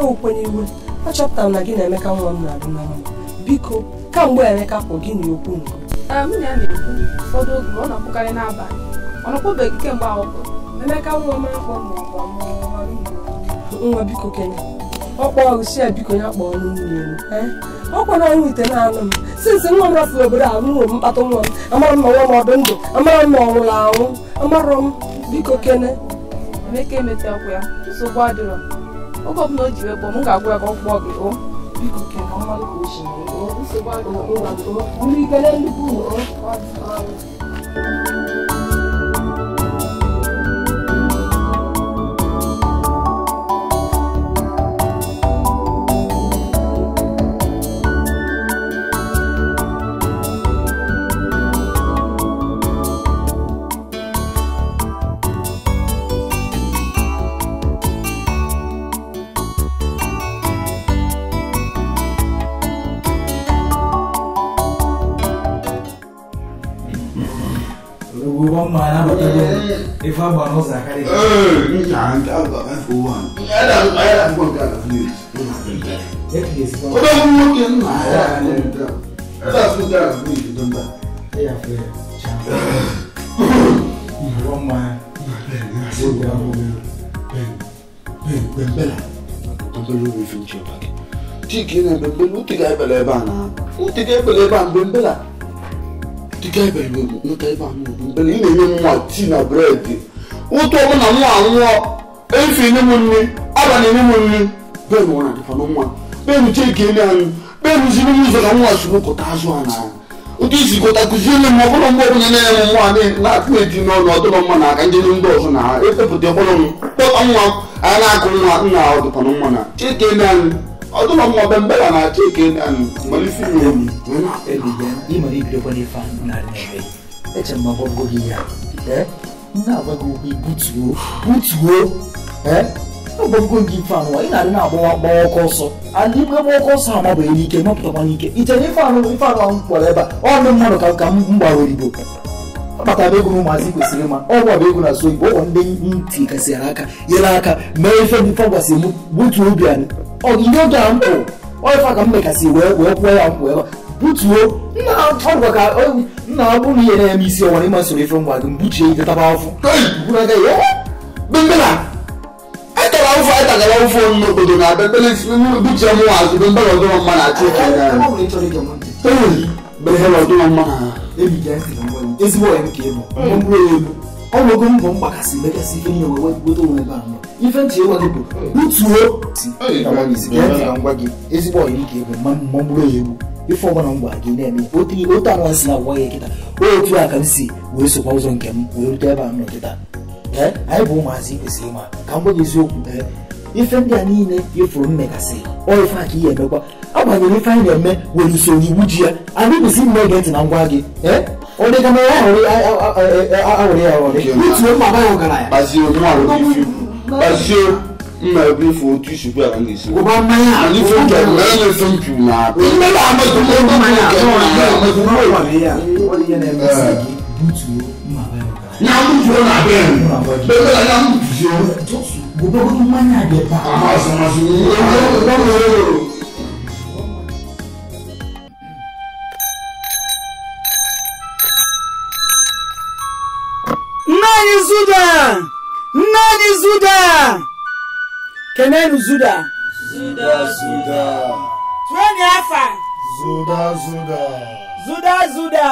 ukwenye eh, iwe achọpụtara na gị na Emeka nwa m na-adị na biko kamgbe Emeka kwụ gị na okwu nke ah, nwunye ya na-ekwu ụfọdụ oge ọ na-akwụkarị n'abalị ọ nakwụbeghị kemgbe ahụ Emeka nwa m nwa biko m nwa m obodo a nwụrụ mkpata nwa m amara nwa m ọ ndụ na ọ nwụrụ anwụ amarọ m biko kene Emeka oge ọbụla o ji wee kpọọ m ga-agwa ya ka ọ kpọọ gị o biko mama na bata if I ban was like hey can't have a for one I don't I don't want that of you that is what I'm looking my that's what that of me don't that yeah fair one man Ben, Ben, Ben, Ben, Bella. Ben, Bella, we finish your packet. Chicken and Ben, Ben, who take I believe on? Who take I believe on Ben Bella? Dịka ibe Igbo nweta ebe ahụ ugbu ị na-enye nwa tii na bụredị ụtọ ọbụ na nwa anwụọ efe enye m nri ọba na-enye m nri bee nwara dịfa na nwa bee nuchie ka enye anyị bee rụziri m ụzọ ka nwa sụrụ kọta azụ a na ụtụ isi kọta kụziere m ọbụla mgbe ọbụla na-enye m nwa na-akpụ eti n'ọnụ ọdụlọ mma na aka ndị ndị ọzọ na ha epepụta ọbụla m kpọta nwa a na-akụ nwa nna ọdịkwa na nwa na chike enye anyị ọdún ọmọ ọbẹ mbẹlẹ na ati eke mọlẹ fi mi omi. ebiya i mọlẹ ibi dọkọ ne fa n'ale yẹrẹ ẹ cẹ mọ bọ bọ yíya ẹ n'a bọ bọ bi butuo butuo ẹ n'a bọ bọ bi fa nù wa i n'ale n'a bọ bọ ọkọ sọ ani bọ bọ ọkọ sọ a ma bọ n'ike ma pọtọ ma n'ike ìtẹ ní fa nù fa nù àwọn kpọlọ ẹ ba ọ ní mmadụ ka ka m gbara oyibo bata bụ ego na ụmụazị kwesịrị ịma ọ bụ ego na so igbo ụwa ndị ntị kasịrị aka nyere aka mee ife ndị fa gwasịrị m butuo obi anyị ọdịdị oge a mkpụ fa ka m mekasị wee wee kwuo ya mkpụ ebe butuo nna ka nna ọ bụrụ ihe na-eme isi ọwara ịma ife ngwa gị mbuchie ike taba etara etagara n'obodo na buchie m azụ be ọdụrọ mma na achị okenye ezigbo onye m ọnụego mbọ mgbakasị bekasị ife ihe wee gote onwe ebe ahụ ife ntị ewa gị bụ butuo ngwa gị ezigbo ọyiri ka egwu ma mmụọ mgbụrụ ya egwu ife ọgbana ngwa gị na-eme otu anwa si na agwa ya kịta otu a ka m si wee sokwa ụzọ nke m wee rute ebe ahụ nọ kịta anyị bụ ụmụazị kwesịrị ịma ka m gwa gị eziokwu ife ndị a niile ifuru mmekasị ọ ife a ka ihe emekwa agbanyere ife anyị na-eme were usoro iwu ji ya anyị kwesịrị ime ege ntị na ngwa gị ee Onde kama awore awore awore. Mitu o baba yọ gara ya. Bazio mu awore fi. Bazio mma ebi fo otu sugu a ne si. O ba mmanya a. Ani fo kẹ mẹ ne fo ntu na. Mme na amadu mo mo mo kẹ mo na amadu mo wa ne ya. O de yẹ na ẹgbẹ sẹ butu mma ba yọ gara. Na butu o na bẹ yẹn. Bẹbẹ la na butu o. Gbogbo mmanya de pa. Aha sọmasọ. Gbogbo mmanya de pa. Zuda! Nna anyị Zuda! Kenenu Zuda! Zuda Zuda! Twenye afa! Zuda Zuda! Zuda Zuda!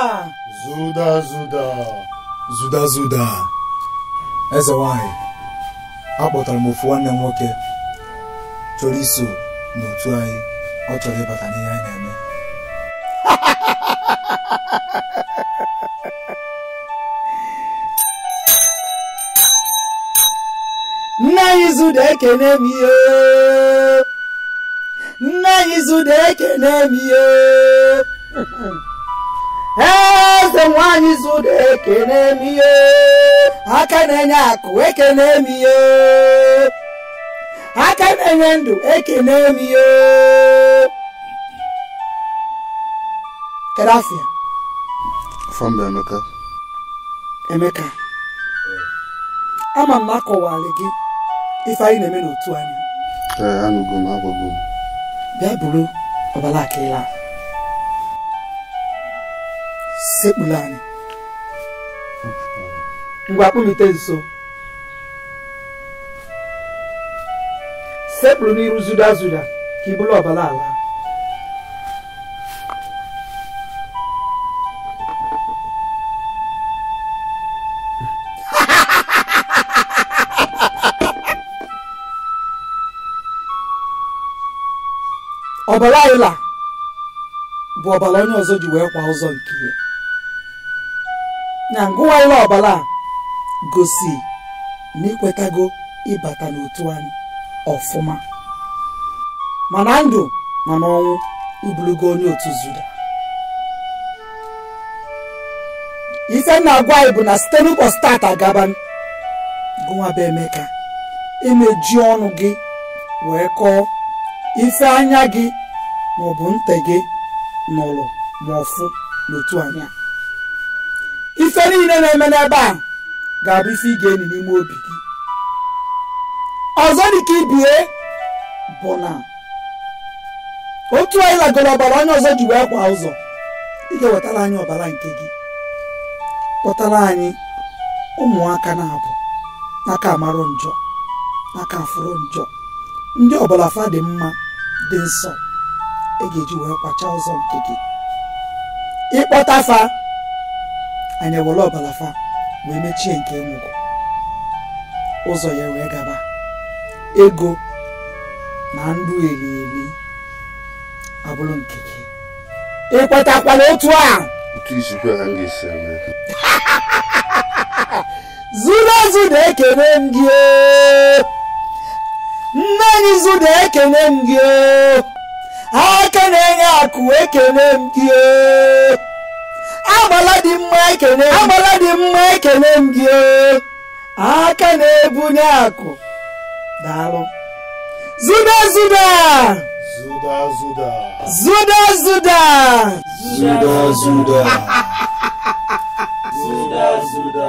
Zuda Zuda! Zuda Zuda! Eze nwanyị, akpọtara m ofu nwanne m nwoke chọrọ iso n'otu anyị ọ chọrọ ịbata n'ihe anyị na-eme nna anyị zụda ekene m ihe nna anyị zụda ekene m ihe eze nwanyị zụda ekene m ihe aka na-enye akụ ekene m ihe aka na-enye ndụ ekene m ihe kedafia fọmba emeka emeka ama m akọwalị gị ife anyị na-eme n'otu anya ee anụgo m agwago m bịa buru ọbala akịla sekpula anyị ngwa kpụlite nso sekpuru n'iru zuda zuda ka i buru ọbala ala ọbara ayịla bụ ọbara onye ọzọ ji wee kwa ụzọ nke ya na ngụwaịla ọbara gosi na ikwetago ịbata n'otu anyị ọfụma ma na ndụ ma n'ọnwụ ibulugo onye otu zuda ife m na-agwa anyị bụ na site n'ụbọchị taata agaba gụwa bụ Emeka ji ọnụ gị wee kọọ ife anya gị maọbụ gị n'ụlọ ma ọfụ n'otu anyị ife niile na-eme n'ebe a ga-abụ ife ị ga-eni n'ime obi gị ọzọ dịka ibie bụ na otu anyị lagoro ọbara onye ọzọ ji wee kwa ụzọ ị ga-ewetara anyị ọbara nke gị kpọtara anyị ụmụaka na-abụ n'aka amarụ njọ n'aka afụrụ njọ ndị ọbara fa dị mma dị nsọ ị ga-eji wee kwacha ụzọ nke gị ịkpọta fa anyị ewere fa wee mechie nke enwugo ụzọ ya wee gaba ego na ndụ elieli abụrụ nke gị ịkwetakwala otu a zuru ezu na-ekene m gị oh! nne anyị zu na-ekene m gị oh! ekene enye akụ ekene m gị agbala dị mma ekene agbala dị mma e zuda zuda zuda zuda zuda zuda zuda zuda zuda zuda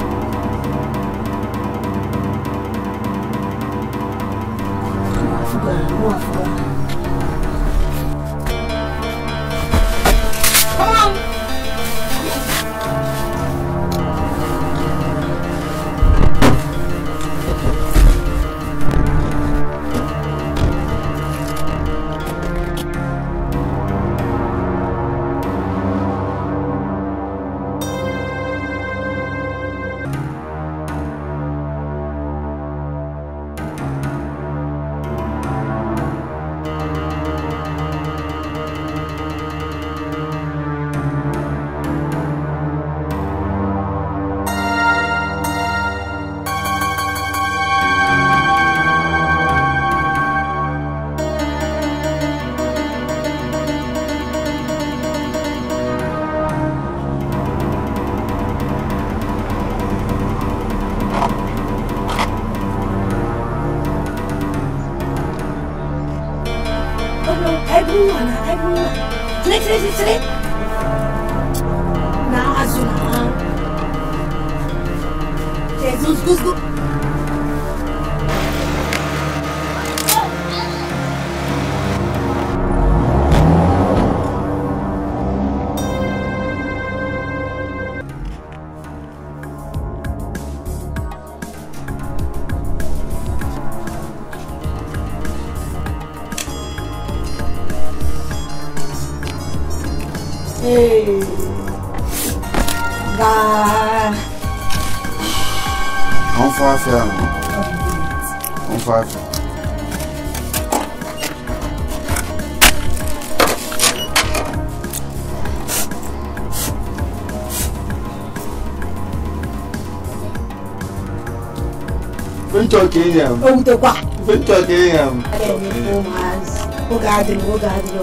talking yam. Oh, the what? We're talking yam. I don't need four months. O garden, go garden.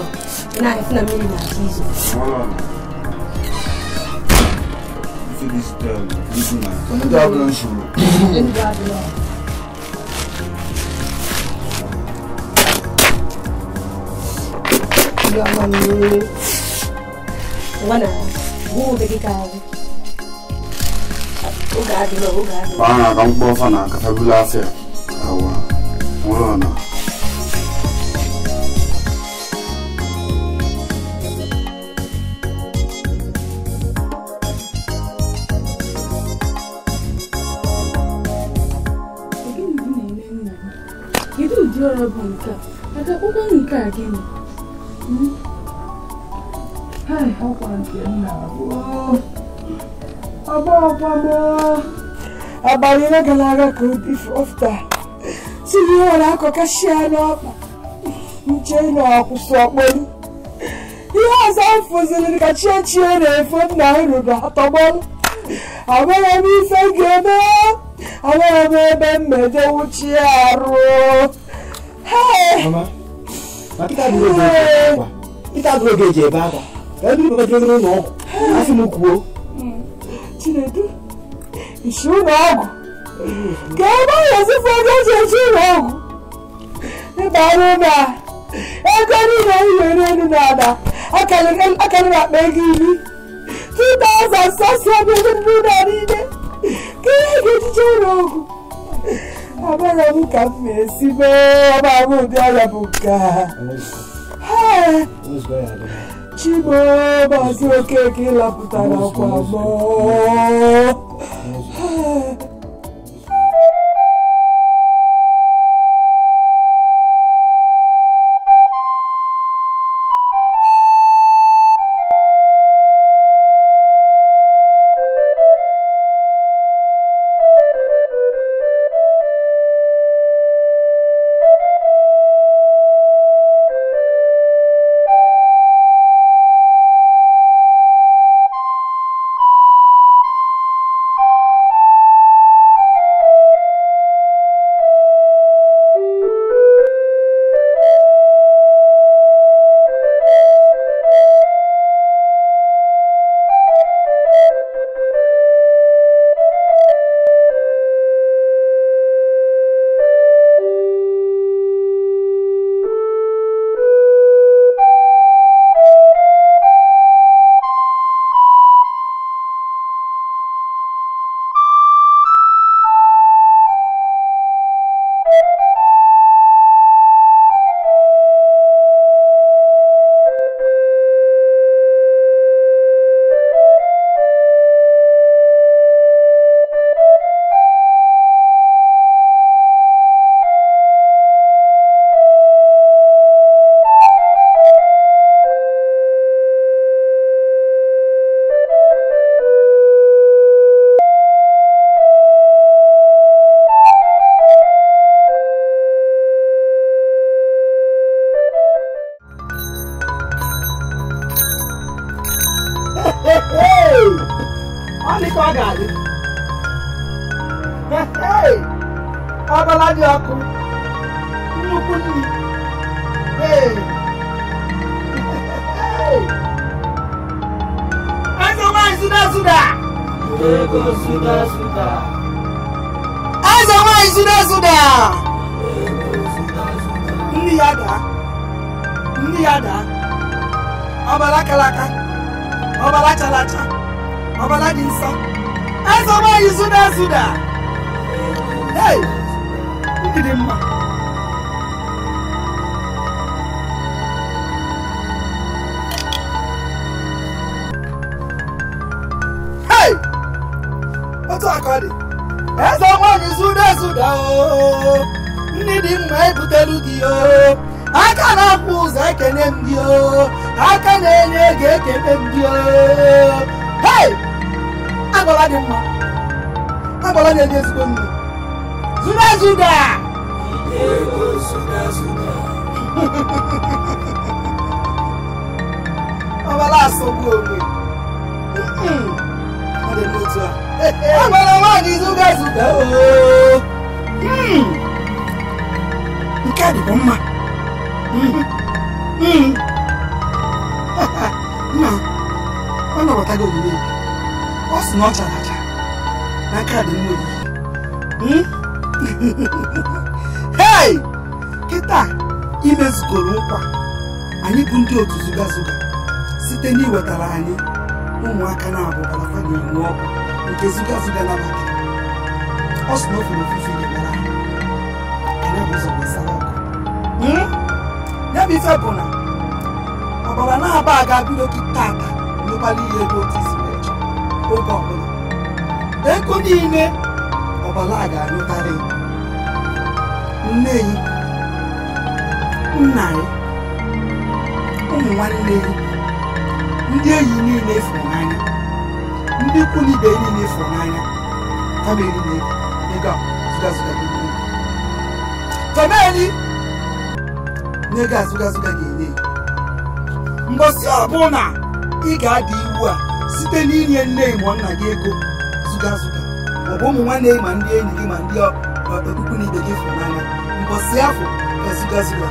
Now, if not, me, not Jesus. Ah. See this this woman. Come on, God bless you. God bless you. Yama mi. Wana, buu beki kazi. Uga adilo, uga adilo. Bana, kama kwa fana, kafabula afya. nke a akwụkwọ nke a gịnị ọkwa nke nna ọba ọkwa m abalị ole gara aga ka ofta si na ihe nwere akọkashia n'ọkpa nche na ọkwụsị ọkpọrụ ihe ọzọ m fụziri ka chie chie na-efe nna ruru atọgbọrụ amaghị m ife ga-eme amaghị m ebe m meje wuchie arụ Mama, ma kita dulu geje ba. Kita dulu geje ba ba. Ya dulu ba dulu no. Asi mu kuo. Chinedu. Isu na ogu. Ka ba ya si fo ga je isu na ogu. E ba ru ba. E ko ni na iwe ni nu na da. Akale kan akale ba pe gi ni. 2000 sasa bi na ni de. Ke ge ti je na Abarabuka Mesibe, Abarabuka. Chibo, Basu Keke, Laputana, Kwabo. Kọmeli na ego azụgazụga ga-enye ya mgbọsị ọbụla ị ga adị iwu a site n'inye nne ịmụ nna gị ego zụgazụga ọ bụ ụmụ nwanne ma ndị enyi gị ma ndị okpukpu na ibe gị fụrụ n'anya mbọsị afọ ga-aga ezụgazụga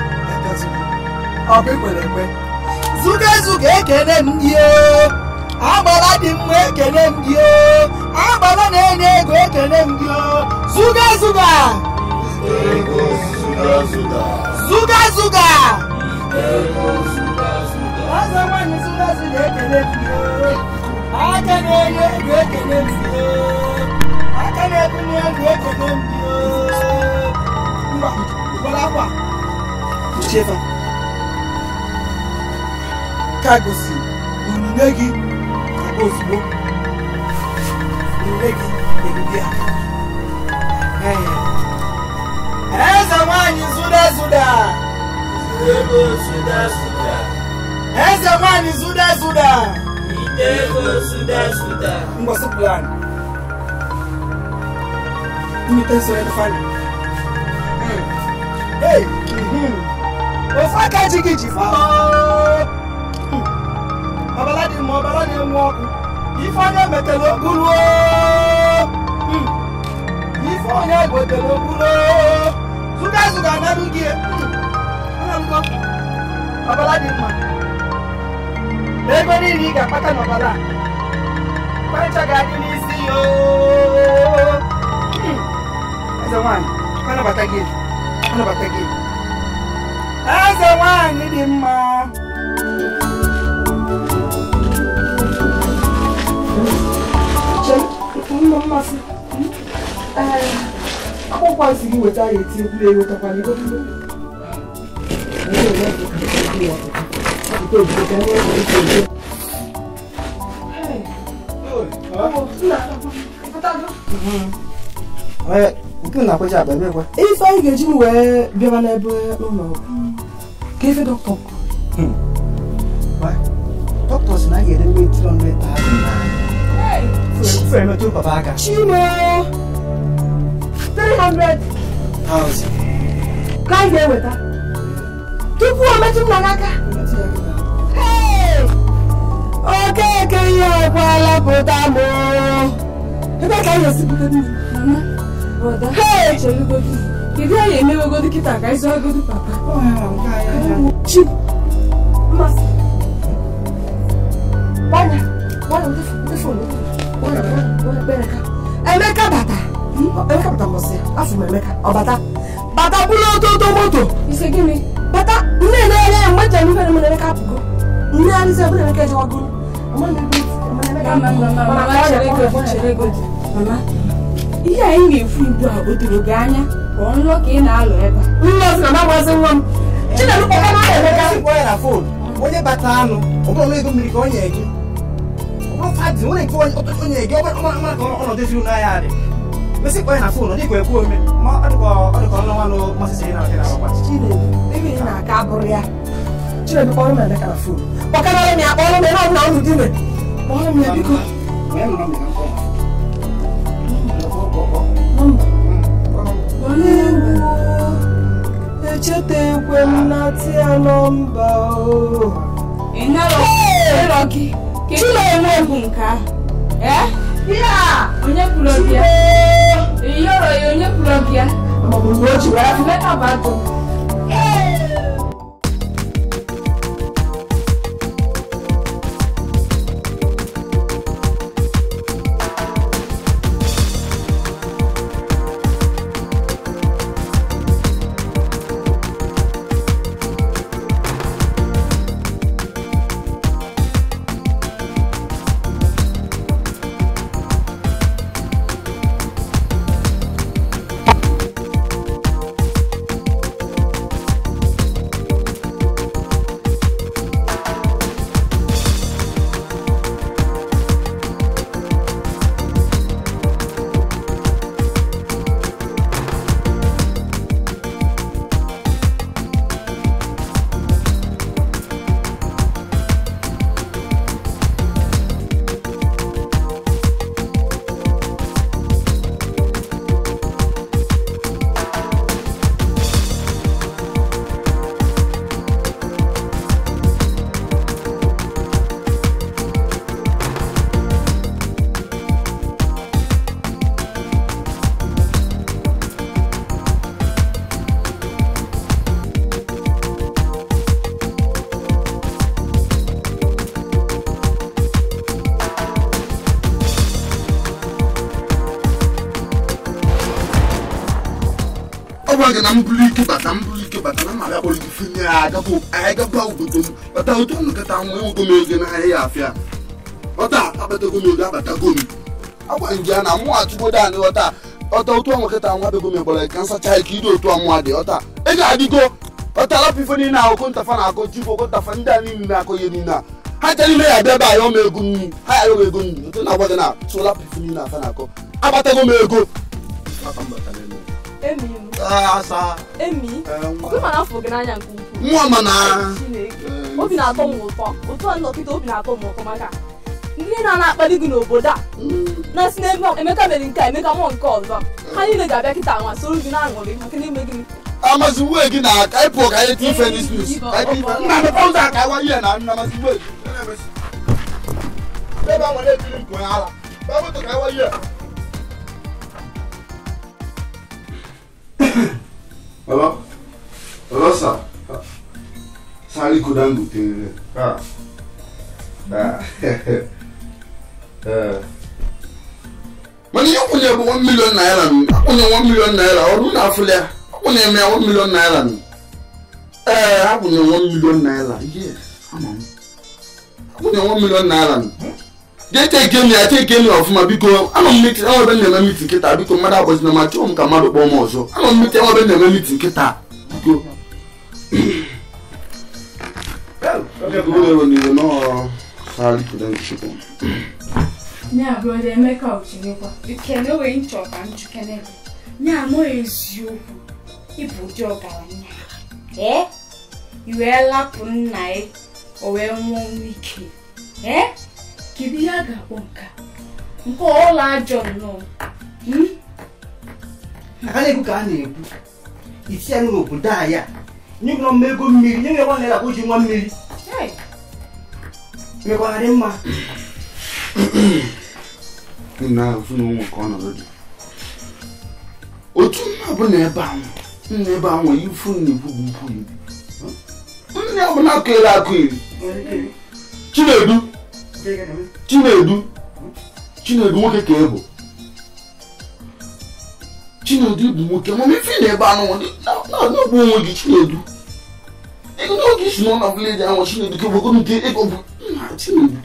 ọ bụ ikwere ekwe zụgazụga ekele m gị agbara dị mma ekele m gị agbara na-enye ego ekele m gị zụgazụga Zuga zuga. Zuga zuga. zuga zuga ekele fie. Aka na Aka na-ebunye ego ekele fie. Mba, ụfọdụ akwa. Uchefa. Ka gosi onyinye gị aka ozugbo. Onyinye gị ebibia. Ee. E zamani zuda zuda. Idego zuda zuda. E zamani zuda zuda. Idego zuda zuda. Ngosu plan. Imitenso ya kufanya. Hmm. Hey. Mhm. Ofaka jigiji fo. Babaladi hmm. mo babaladi mo ọkụ. Ifeanya metelo ogulu hmm. o. Ifeanya egotela ogulu suga suga nanu gie ọlọmọ ọbala dị mma ego niile ị ga-akpata n'ọbala kwancha ga-adị n'isi ya eze nwanyị anabata gị anabata gị eze nwanyị dị mma mmasị kwazi kuweta yethi kuleyo kampani kodwa nke na-akwaja akpa ebe kwa ife anyị ga-eji m wee bịaba n'ebe ụlọ ọgwụ ka ife dọkịta dọkịta si na a ga-edebe 300,000 Chinoo three hundred thousand ka anyị ga-eweta tupu o metụ m na n'aka okeke ihe ọkwala pụta m ebe ka anyị esi bute niile Kedu anyị emewegodi kịta ka anyị zụọgodi papa? Chi! Mmasị! Gbanya! Gbanya ndị fonu! Gbanya! Gbanya! Gbanya! Emeka bata! Emeka batakwasị afọ m Emeka ọ bata bata bụrụ ototo moto ise gịnị bata nne na-enye ya mgbe njem ife na Emeka apụgo nne arịzi ebụrụ Emeka ejewago ihe anyị na-efu ugbu a o doro gị anya ka ọ nlọ ka ị na-alụ ebe onye bata anụ ọbụrụ ego mmiri ka ọ nye gị ọ bụrụ fadị nwere nke onye gị ọ mara ka ọnọdụ ezi ụlọ ahịa dị mesi kpɔɛ na fon ɔdi kɔɛ kuo mi mɔ ɔdi kɔ ɔdi kɔ ɔlɔnwa no mɔ sisi yi na ɔdi na ɔkpa. chile ebi yi na aka aburu ya chile bi kpɔlu mi ɛdi kana fon ɔkana ɔlɔ mi akpɔlu mi n'ɔdi na ɔlu di mi ɔlɔ mi ɛbi ko. Olewo echetekwe m na tia nọmba o. Ịnarọ gị. Chile enweghị nke ahụ. Ee? Ihe a! Onye kwuru gị ya? iyoro ya onye ya maọbụ na o ji wara ọ gwara na mbụrụ ike bata mbụrụ ike bata na mma ya kpọrọ gị finye ya agaba anyị gaba obodo m bata otu nkata ogo m ego n'ahịa ya afịa ọta m ego abatago m agwa na mụ ọta ọta otu ọnwa nwa bego ka nsacha ike otu dị ọta ị ga-adịgo ọta alapụ ife niile ahụ ntafa na-akọ jibụ ntafa ndị a niile na-akọ ihe niile a ha chere ime ya bịa be ego nri ha ya ọma m ego na afọ gị n'anya nke ukwuu obi na-atọ m ụtọ ụtọ nnọkịta obi na-atọ m ụtọ maka ndị na-akpali gị n'obodo a na na Emeka mere nke a Emeka mụọ nke ọzọ ha niile ga-abịa kịta nwa soro gị na-aṅụrị maka na-eme gị amazi gị na ịpụ ka anyị nna m ụzọ a nwere ekiri nke onye ala ebe moto ka ịwa ihe baba baba sa sáré kó dáńgò tẹ̀lé rẹ̀. mani yi kunye bu one million naira ni akunye one million naira ọdún náà fúlẹ̀ akunye mẹ́ one million naira ni ẹ̀ eh, akunye one million naira yes akunye one million naira ni. jee teke m ya teke m ya ọfụma biko anọ m miti enwebe na-eme miti nkịta biko mmadụ agbazina ma chọọ m ka mmadụ kpọọ m ọzọ anọ m miti enwebe na-eme miti nkịta biko na eziokwu ịbụ ụdị ọgaranya ee i wee lapụ nna ya o wee nwụọ ike ee kedu ihe a ga-akpọ nka nke ọla ajọ nnọọ a na-ekwu ka a na-ekwu isi anyị n'obodo anyị nyegụrọ mma ego mmiri nye nwa naira akpụ ji nwa mmiri mekwarị mma nna na ụmụ ka ọnọdụ dị otu nna bụ na ebe ahụ nna ebe ahụ akụ akụ chinedu Chinedu Chinedu nwoke ka ị bụ Chinedu bụ nwoke mana ife na ebe anụ na-agụ onwe gị Chinedu n'oge isi nọ na vileji ahụ Chinedu kebogo nke ego bụ nna Chinedu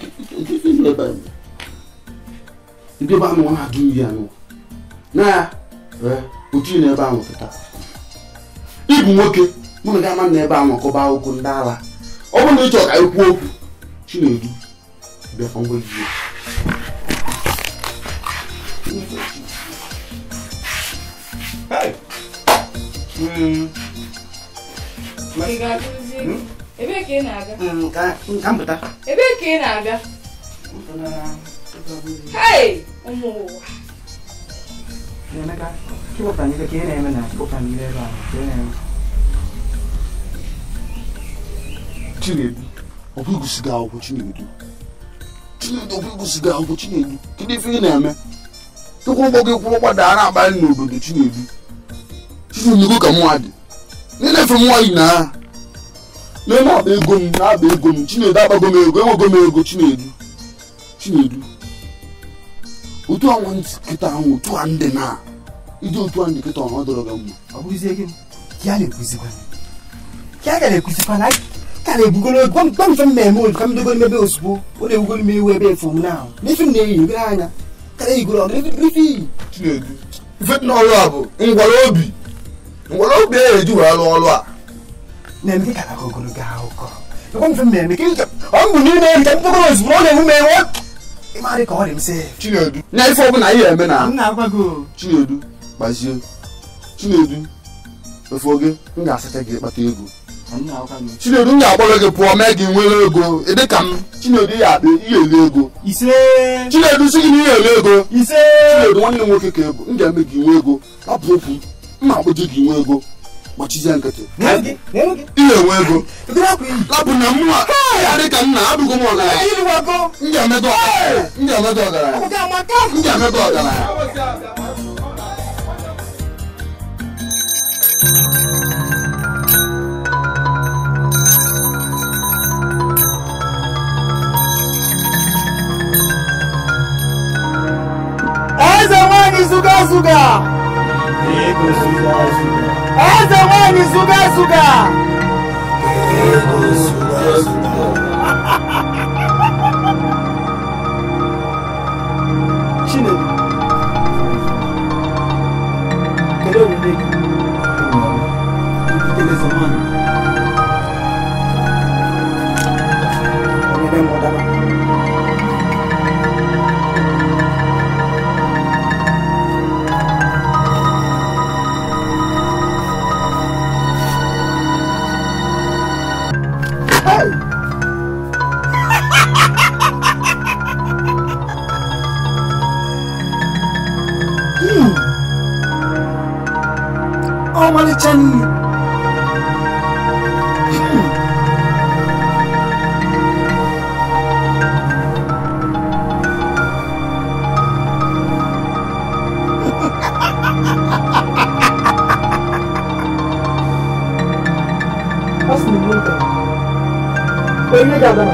kefe na ebe anyị ndị ebe anụ na-agụ nri anụ na ya otu na ebe ahụ pụta ịbụ nwoke mụ na gị ama na ebe ahụ kọba akwụkwọ ndị ala ọ bụrụ na ị ka anyị okwu Chinedu da angoli Hey. Mm. mas Zico. Ebe ka ị na-aga? Ka m pụta. Ebe ka ị na-aga? Hey! Ụmụ ụwa. Emeka, kewapụ anyị ka ị na-eme na kewapụ anyị ebe a ka ị na-eme. Chinedu, ọ bụghị gosi gị akwụkwọ Chinedu. chinye ndokwigo sigaangu chinedu kidifi ineme tikumbokikwulo kwadara abali n'obodo chinedu chifuniko ka mmadụ ninefe nwaanyị na n'eme akpa ego m na-akpa ego m chinedu agbago m ego enwego m ego chinedu chinedu otu a nwantị kịta ahụ otu a ndị na iji otu a ndị kịta ọnụ ọ dọrọ gị mma ọ bụrụzie gị ya na-ekwuzikwa ya ga na-ekwuzikwa na ka na-ebugoro gwa m gwa m ka ebe ozugbo ọ na-ebugoro ebe efu na ahụ n'ife m na-eyi anya ka na-eyigoro ọgụ chinedu ife a bụ ngwara obi ngwara obi e a na-eme dịka e ka ọ bụ ozugbo ọ na-ewu ka ọ dị m sị chinedu na ife ọbụla na chinedu gbazie chinedu na. m ga-asacha gị ego chinedu ga-akpọrọ gị pụọ mee gị nwere ego dị ka m chinedu ya akpa ihe ele ego chinedu si gị na ihe ele ego chinedu nwanne nwoke ka ego m ga-eme gị nwe ego apụ okwu mma akpụji gị nwe ego gbachizie nkịtị ihe enwe ego lapụ na mụwa ya dị nna abụgo m ọgaranya m ga ọgaranya m ga ọgaranya ai zamani suga suga ai zamani suga suga Chineke kedu omume gị? Ele zamani 对吧？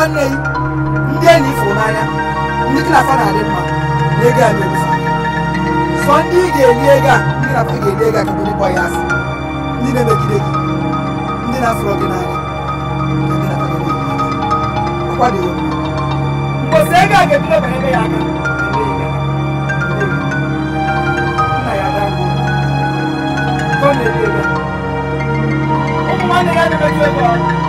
nwanne gị ndị enyi ifuru n'anya ndị klafa na-adị mma na ego a na-ebufe sọ ndị ị ga-eli ego a ndị na-afọ ga-eli ego a ka ndị ya asị ndị na-emegide gị ndị na-afụrọ gị n'anya akwadoghị ndị ego a ga ebe ya aka ụmụ nwanne ya na-emeju ego ọrụ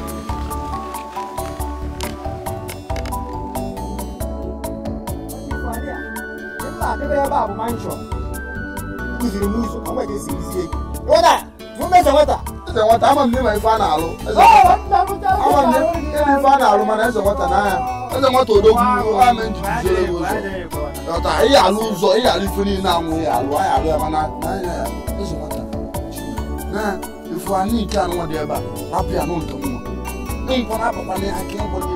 mansion use remove ọmọ ìdí sí ìdí èkó wọ́dà fún mẹ́sàn-án wọ́tà. ẹsẹ̀ wọ́tà ama nne ma ife a na-alụ ama nne ebe ife a na-alụ wọ́tà n'anya ẹsẹ̀ wọ́tà odogwu ama nji jere ụzọ ọta ihe alụ ụzọ ihe alụ ife niile anwụ ya alụ anyị alụ ya mana n'anya ya ẹsẹ̀ wọ́tà na ife anyị nke anụ dị ebe a rapụ ya n'ụtọ mma nkwa na-apụkwa n'aka ịkwụ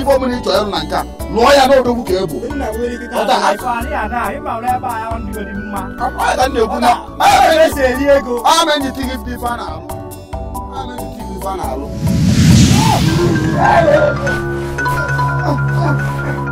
ife ọbụla ị chọrọ na nke a lụọ ya n'odogwu ka ebu ama